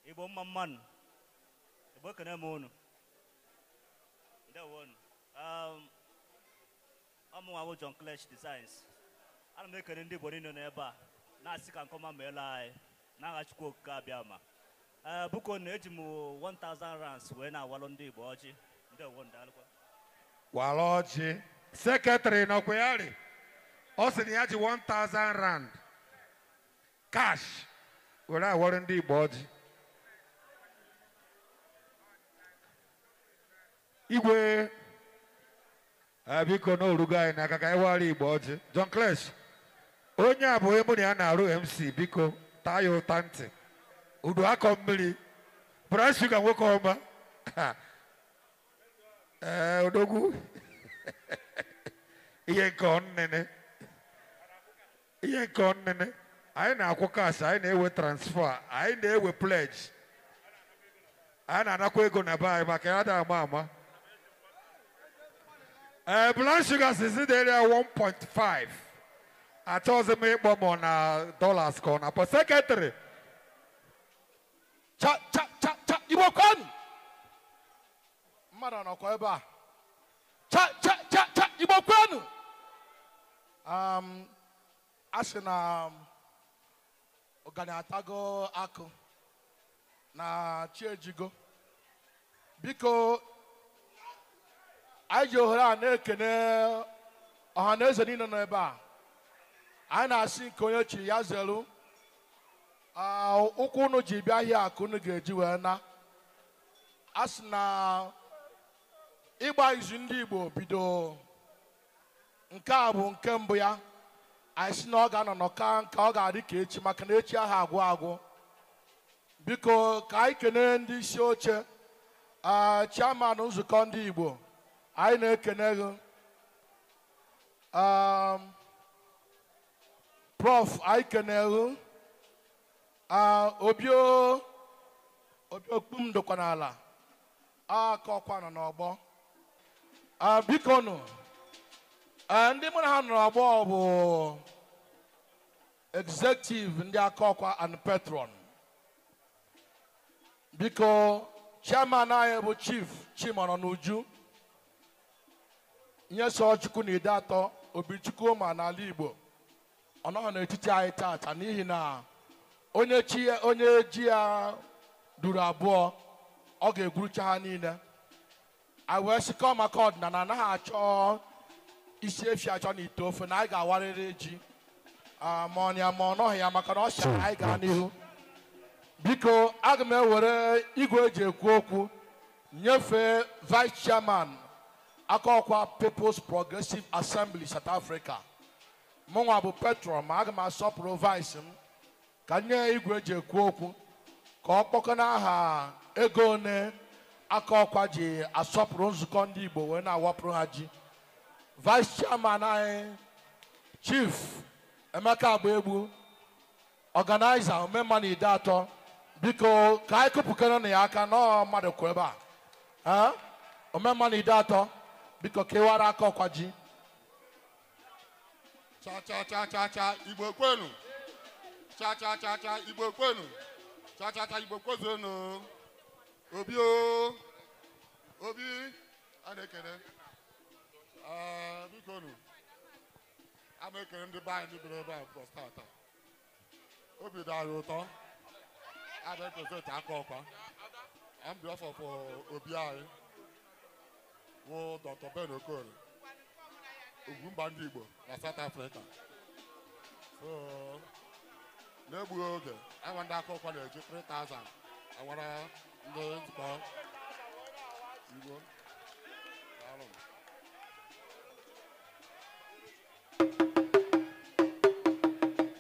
igbo mma mmanụ igbo kene m unu ndewonu um, ọmụnwawụ John Clesh Designs ana m ekene ndị igbo niile n'ebe a na-asị ka nkọma meela anyị n'aha Chukwu Okike abịa ee eh, buko na eji m 1000 rands wee na-awalụ ndị igbo ọjị ndewonu daalụkwa wala ọjị sekretịrị nọkwa ya rị ọ sị na ya ji 1000 rand cash were awọrọ ndị Igbo ọjị igwe biko na orugo anyị n'aka ka anyị wara Igbo ọjị John Clesh onye a bụ emụ na ya na-arụ MC biko taa ya ụta ntị udu akọ mmiri brown sugar nwoke ọma ee odogwu ihe nke ọnene ihe nke nnịnị anyị na-akwụ kas anyị na-ewe transfer anyị na-ewe pledge anyị na-anakwa ego na be anyị maka ya da ama ama ee eh, blood sugar sizi dị area 1.5 achọghịzi m ịkpọ m na dollars ka ọ na-akpọ sekretịrị cha cha cha cha igbo kwanụ mmadụ nọkwa ebe a cha cha cha cha igbo kwanụ um, a sị na um, ọgani atago akụ na chi biko anyị ji ohere a na-ekene ọha na eze niile nọ ebe a anyị na-asị nke onye chi ya zelu ụkwụ unu ji bịa ahịa akụ unu ga-eji wee na a sị na ịgba izu ndị Igbo bido nke a bụ nke mbụ ya anyị si na ọ ga-anọ ka nka ọ ga-adị ka echi maka na echi ahụ agwụ agwụ biko ka anyị kene ndị isi oche chairman nzukọ ndị Igbo anyị na-ekene gị prof anyị kene gị obi m dokwa n'ala aka ọkwa nọ n'ọgbọ biko Eh, ndị mụ na ha nọrọ abụọ bụ executive ndị aka ọkwa and patron biko chairman anyị bụ chief chimọrọ n'uju nye na ide atọ obichukwu ma n'ala igbo ọ nọghị n'etiti anyị taata n'ihi na onye chi onye ji ya duru abụọ ọ ga-egwurucha ha niile a wee maka ọdịnala anaghị achọ isi efi achọ na ite ofe na anyị ga-awarịrị ji ah, ma ọ ma ọ nọghị ya maka na ọ chọrọ anyị n'ihu biko aga m ewere igwe eji ekwu okwu nyefee vice chairman akọkwa people's progressive assembly south africa nwa bụ petro ma aga m asọpụrụ vice m ka nye igwe eji ekwu okwu ka ọ kpọkọ n'aha ego one akọkwa ji asọpụrụ nzukọ ndị igbo wee na-awapụrụ ha ji vice chairman anyị chief emeka agbaegbu ọganaiza omemma na ide atọ biko ka anyị kụpụkere na ya aka nọọ mmadụ kwụ ebe a omemma ide atọ biko kewara aka ọkwa ji obi o obi a ee biko nu a na ndị be anyị biri ebe obi dị ụtọ a na-eprezent aka ọkwa obi anyị wụ dr ben okorie ugwumba ndị igbo na south africa na-egbughị oge awa ndị aka ọkwa na-eji 3000 awara ndị nzukọ igbo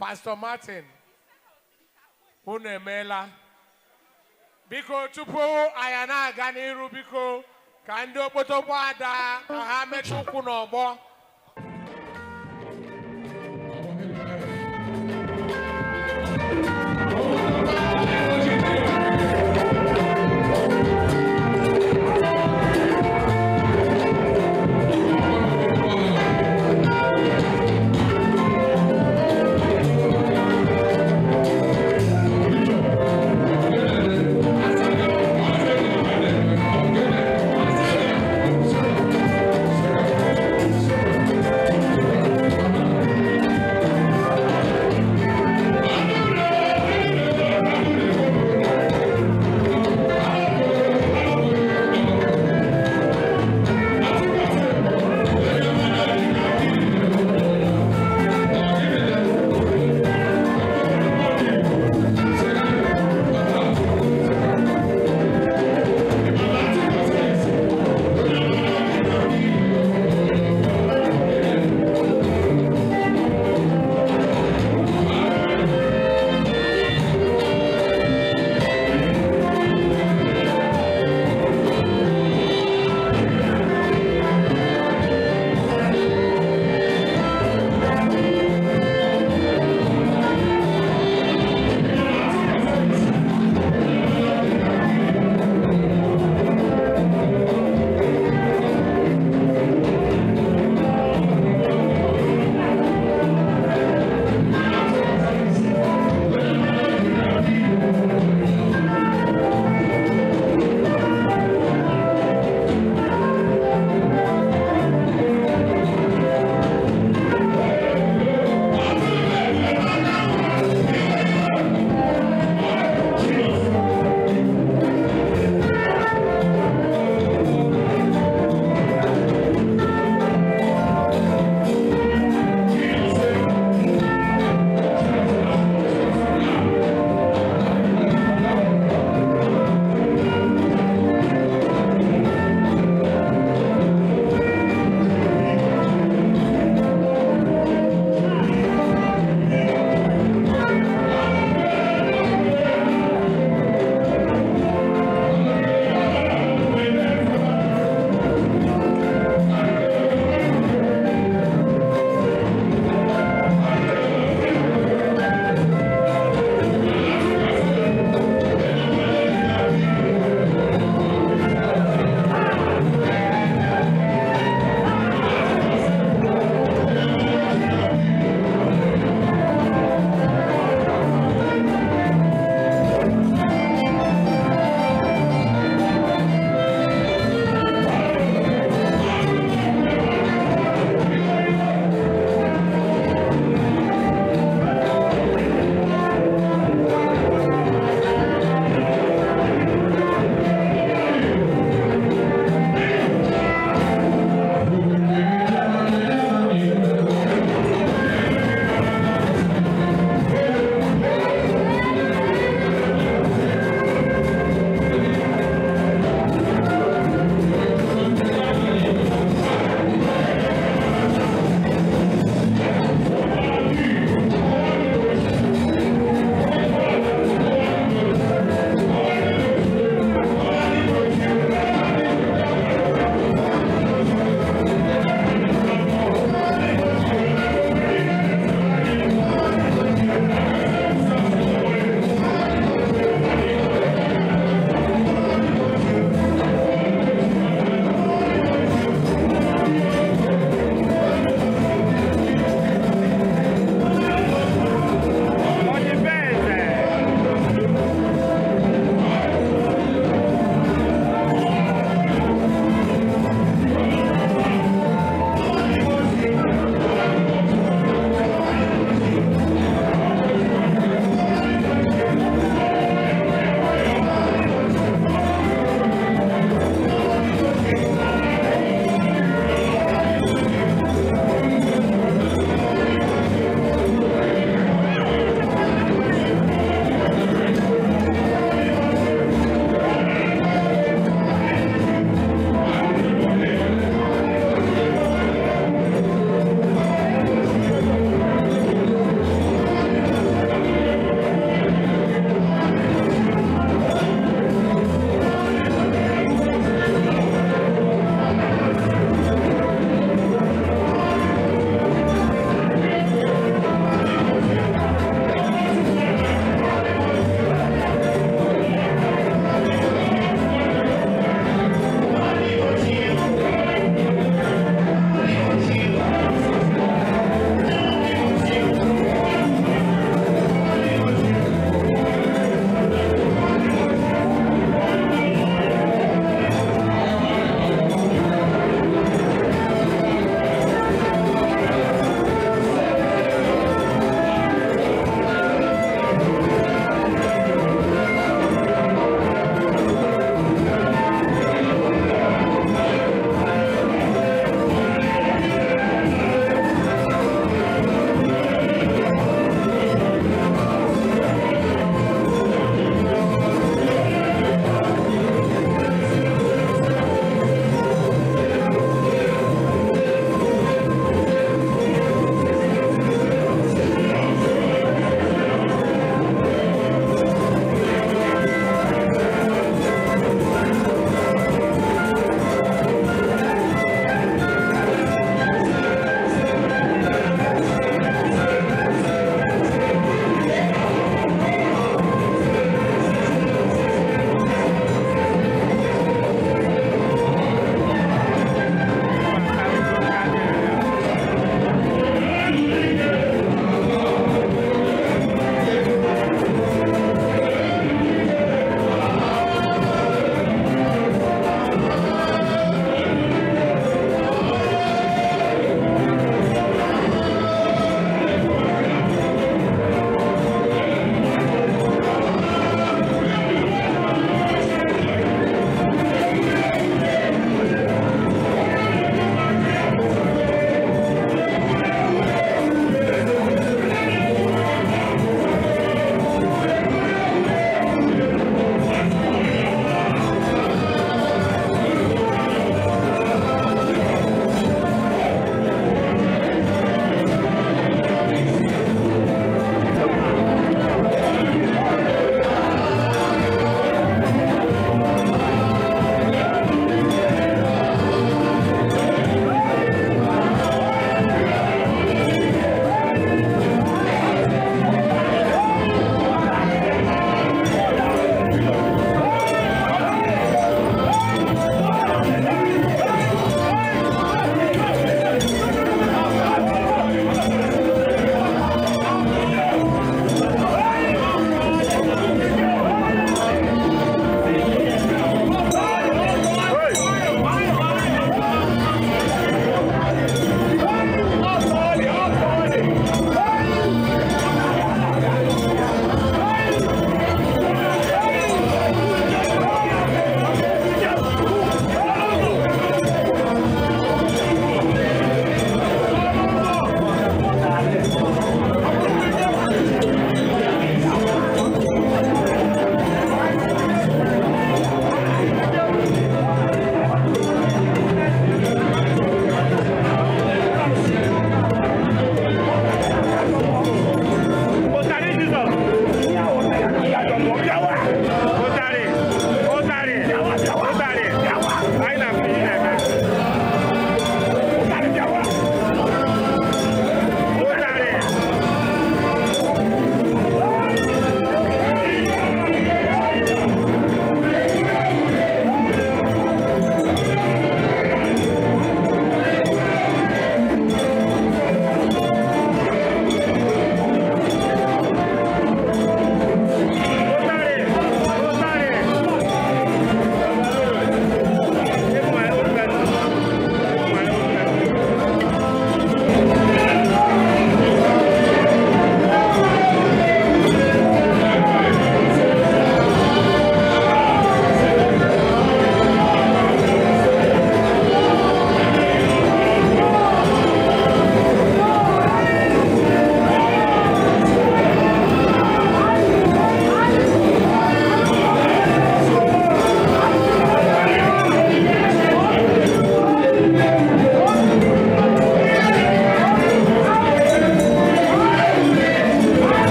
Pastor Martin unu emeela biko tupu anya na-aga n'iru biko ka ndị okpotokpo ada ka ha mechaa ụkwụ n'ọgbọ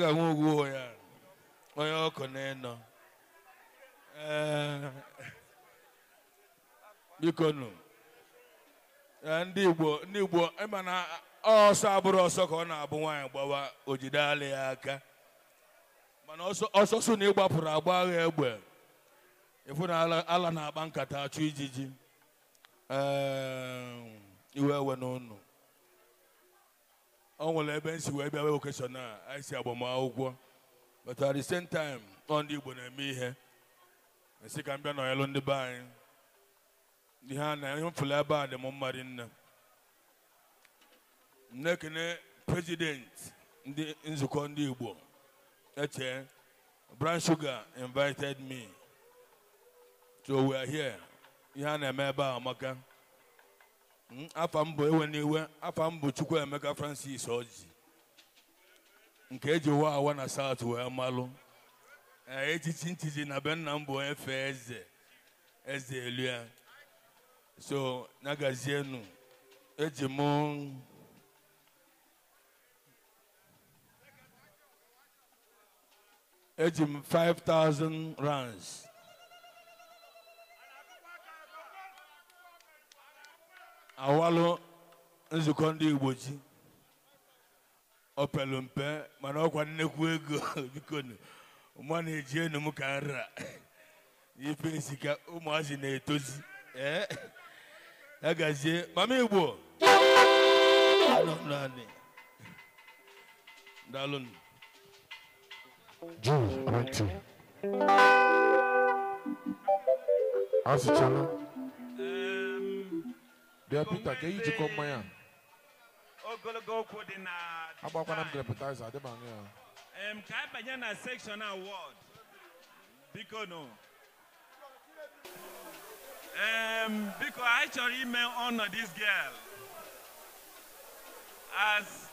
ga anwụ ogwu ya onye ọkụ na ịnọ eh, biko nụ eh, ndị igbo ndị igbo ịma na ọsọ abụrụ ọsọ ka ọ na-abụ nwaanyị gbawa o jidela ya aka mana ọsọsụ na ịgbapụrụ agba agha egbe ịfụ na ala na-akpa nkata achụ ijiji eh, iwe ewe n'ụnụ ọ nwere ebe nsi wee bịa wevokeshon a anyị si agbamakwụkwọ but at the same time ọ ndị Igbo na-eme ihe esi ka m bịa nọnyelụ ndị be anyị ihe a na ihe mfụlụ ebe a dị m mma nne na president ndị nzukọ ndị Igbo eche Brown Sugar invited me so we are here ihe a na-eme ebe a amaka Mm, afa mbụ ewe n'iwe afa mbụ Francis Orji nke eji wa awa na South wee malụ e, echichi ntiji na be nna m bụ eze eze elu ya so nagazienu eji m eji m 5000 rands awalụ nzukọ ndị igbo ji ọ mpe mana ọkwa nnekwu ego bikonu mma na-eji enu m ka nra ife isi ụmụazị na-etozi ee ya gazie mama igbo naanị daalụnụ Jews, Bịa Peter ka eyi jikọ to ogologo okwu dị na ya ka anyị banye na section award biko no um, biko anyị honor this girl as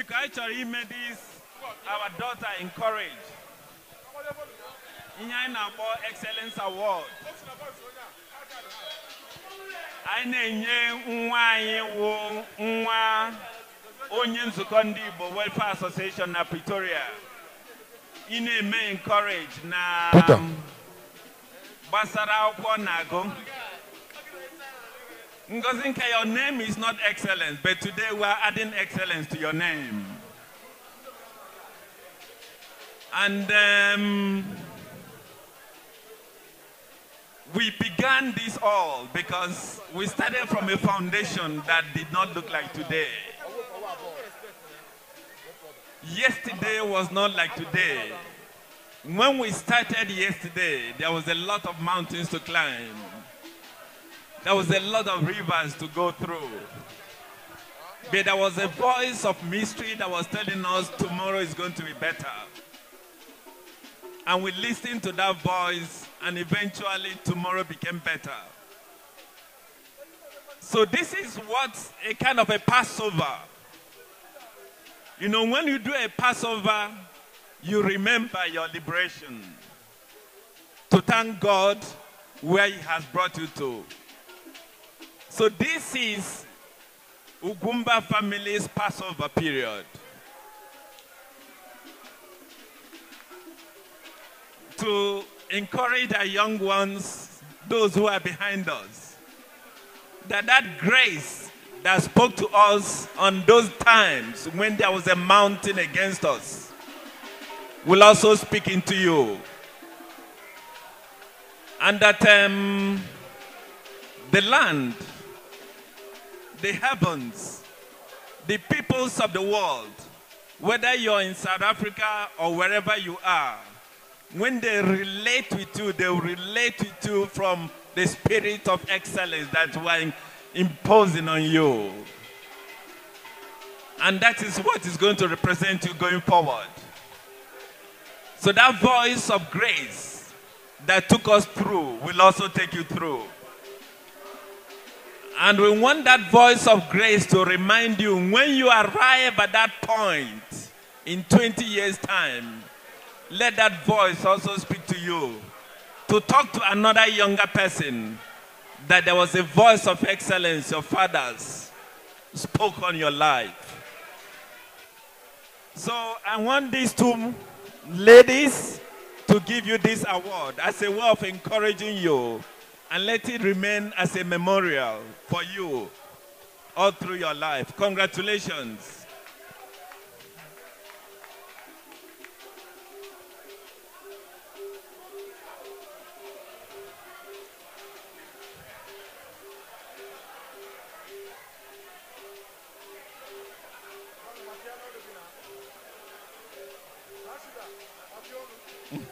biko anyị chọrọ ime dis our daughter encourage ihe anyị na-akpọ excellence award anyị na-enye nwa anyị wụ nwa onye nzukọ ndị Igbo Welfare Association na Pretoria ị na-eme encourage na gbasara akwụkwọ na-agụ Ngozinka, your name is not excellence, but today we are adding excellence to your name. And um, we began this all because we started from a foundation that did not look like today. Yesterday was not like today. When we started yesterday, there was a lot of mountains to climb. There was a lot of rivers to go through. But there was a voice of mystery that was telling us tomorrow is going to be better. And we listened to that voice, and eventually tomorrow became better. So this is what a kind of a Passover. You know, when you do a Passover, you remember your liberation. To thank God where he has brought you to. So this is Ugumba family's Passover period. To encourage our young ones, those who are behind us, that that grace that spoke to us on those times when there was a mountain against us will also speak into you. And that um, the land the heavens, the peoples of the world, whether you're in South Africa or wherever you are, when they relate with you, they relate with you from the spirit of excellence that we're imposing on you. And that is what is going to represent you going forward. So that voice of grace that took us through will also take you through. And we want that voice of grace to remind you when you arrive at that point in 20 years' time, let that voice also speak to you to talk to another younger person that there was a voice of excellence your fathers spoke on your life. So I want these two ladies to give you this award as a way of encouraging you and let it remain as a memorial for you all through your life. Congratulations.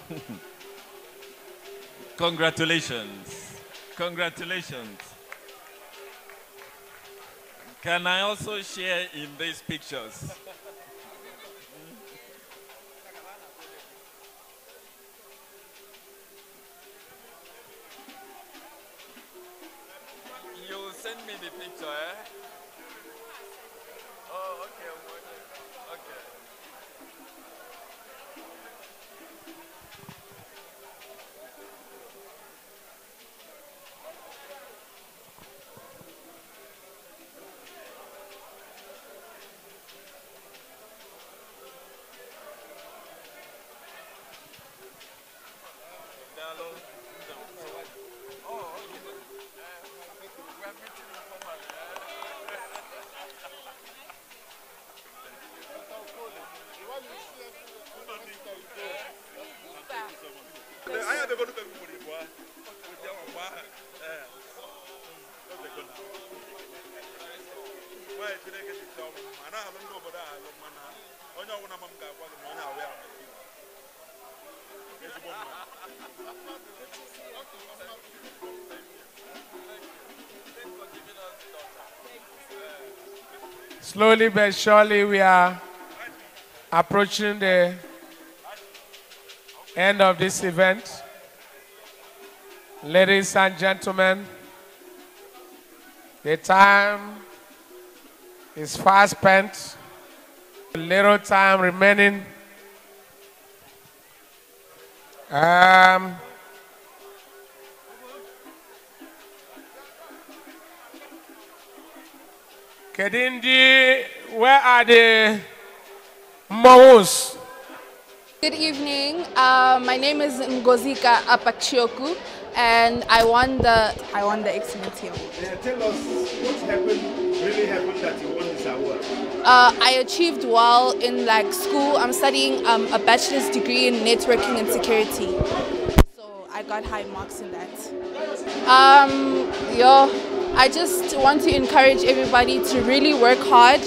Congratulations. Congratulations. Can I also share in these pictures? Slowly but surely, we are approaching the end of this event. Ladies and gentlemen, the time is fast spent, little time remaining. Um, Kedindi, where are the Mawus? Good evening. Uh, my name is Ngozika Apachioku, and I won the I won the excellence award. tell us what happened, really happened that you won this award. Uh, I achieved well in like school. I'm studying um, a bachelor's degree in networking and security, so I got high marks in that. Um, yeah. I just want to encourage everybody to really work hard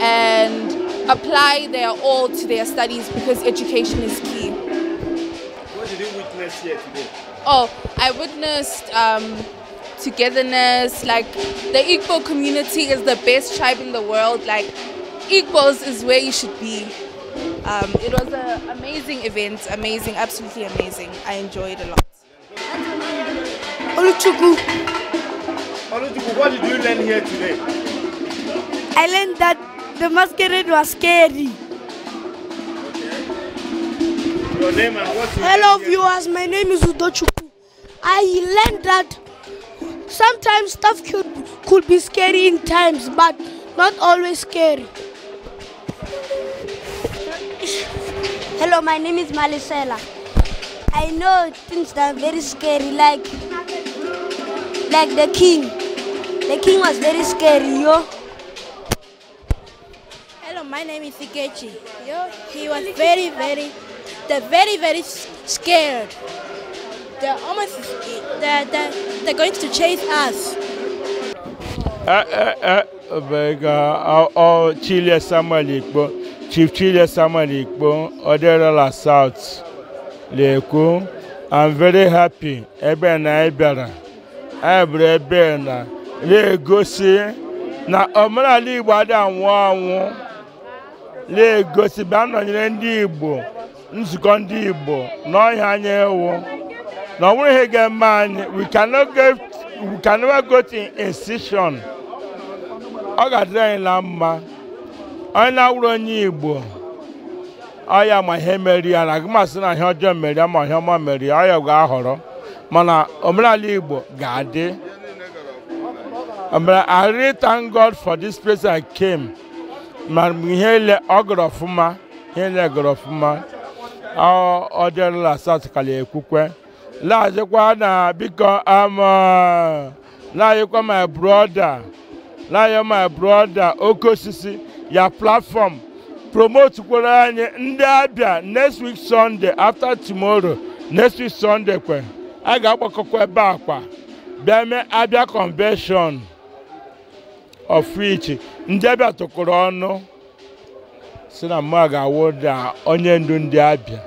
and apply their all to their studies because education is key. What did you witness here today? Oh, I witnessed um, togetherness. Like the Igbo community is the best tribe in the world. Like Igbos is where you should be. Um, it was an amazing event, amazing, absolutely amazing. I enjoyed a lot what did you learn here today? I learned that the masquerade was scary. Okay. Your name and what's your Hello name viewers, my name is Udochuku. I learned that sometimes stuff could, could be scary in times, but not always scary. Hello, my name is Malisela. I know things that are very scary, like like the king. The king was very scary, yo. Hello, my name is Ikechi. Yo, he was very, very, the very, very scared. They're almost, they're, they're, they're going to chase us. Eh, eh, eh, Chile Samuel Ikpo, Chief Chile Samuel Ikpo, Oderola South, Leko. I'm very happy. Ebe na ebera. Ebre ebe na-egosi na omenala Igbo adị anwụ anwụ na-egosi bịa nọnyere ndị Igbo nzukọ ndị Igbo n'ọhịa anya ewu na ọ nwere ihe ga-eme anyị we can never ọ ga-adịrị anyị na mma onye na-awụrụ onye Igbo ọ ya ma ihe meri ya na agụmasị na ihe ọjọọ meri ya ma ihe ọma meri ya ọ ya ga-ahọrọ mana omenala Igbo ga-adị But I really thank God for this place I came. ma mgbe ihe ele ọ gọrọ ọfụma ihe ele gọrọ ọfụma laghachikwa na biko ama um, laghachikwa my brother laghachikwa my brother oke ya platform promote kwere anya ndị abịa next week sunday after tomorrow next week sunday kwe a ga-agbakọkwa ebe akwa bịa Abia convention of which ndị abịa tụkụrụ ọnụ si na mma ga-awụda onye ndu ndị abịa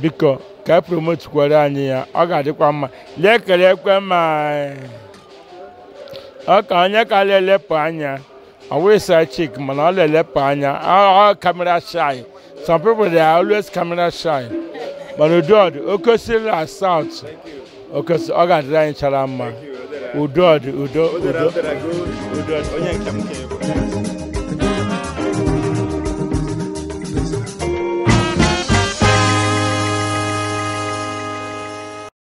biko ka e promotukwara anyị ya ọ ga-adịkwa mma lee kere ekwe ma ọ onye ka na-elepụ anya ọ wụsa chik mana ọ na-elepụ anya ọ kamera shy some people they are always camera shy mana udod okosila south okosi ọ ga-adịrị anyị chara mma udo dị udo udo udo onye nke m ka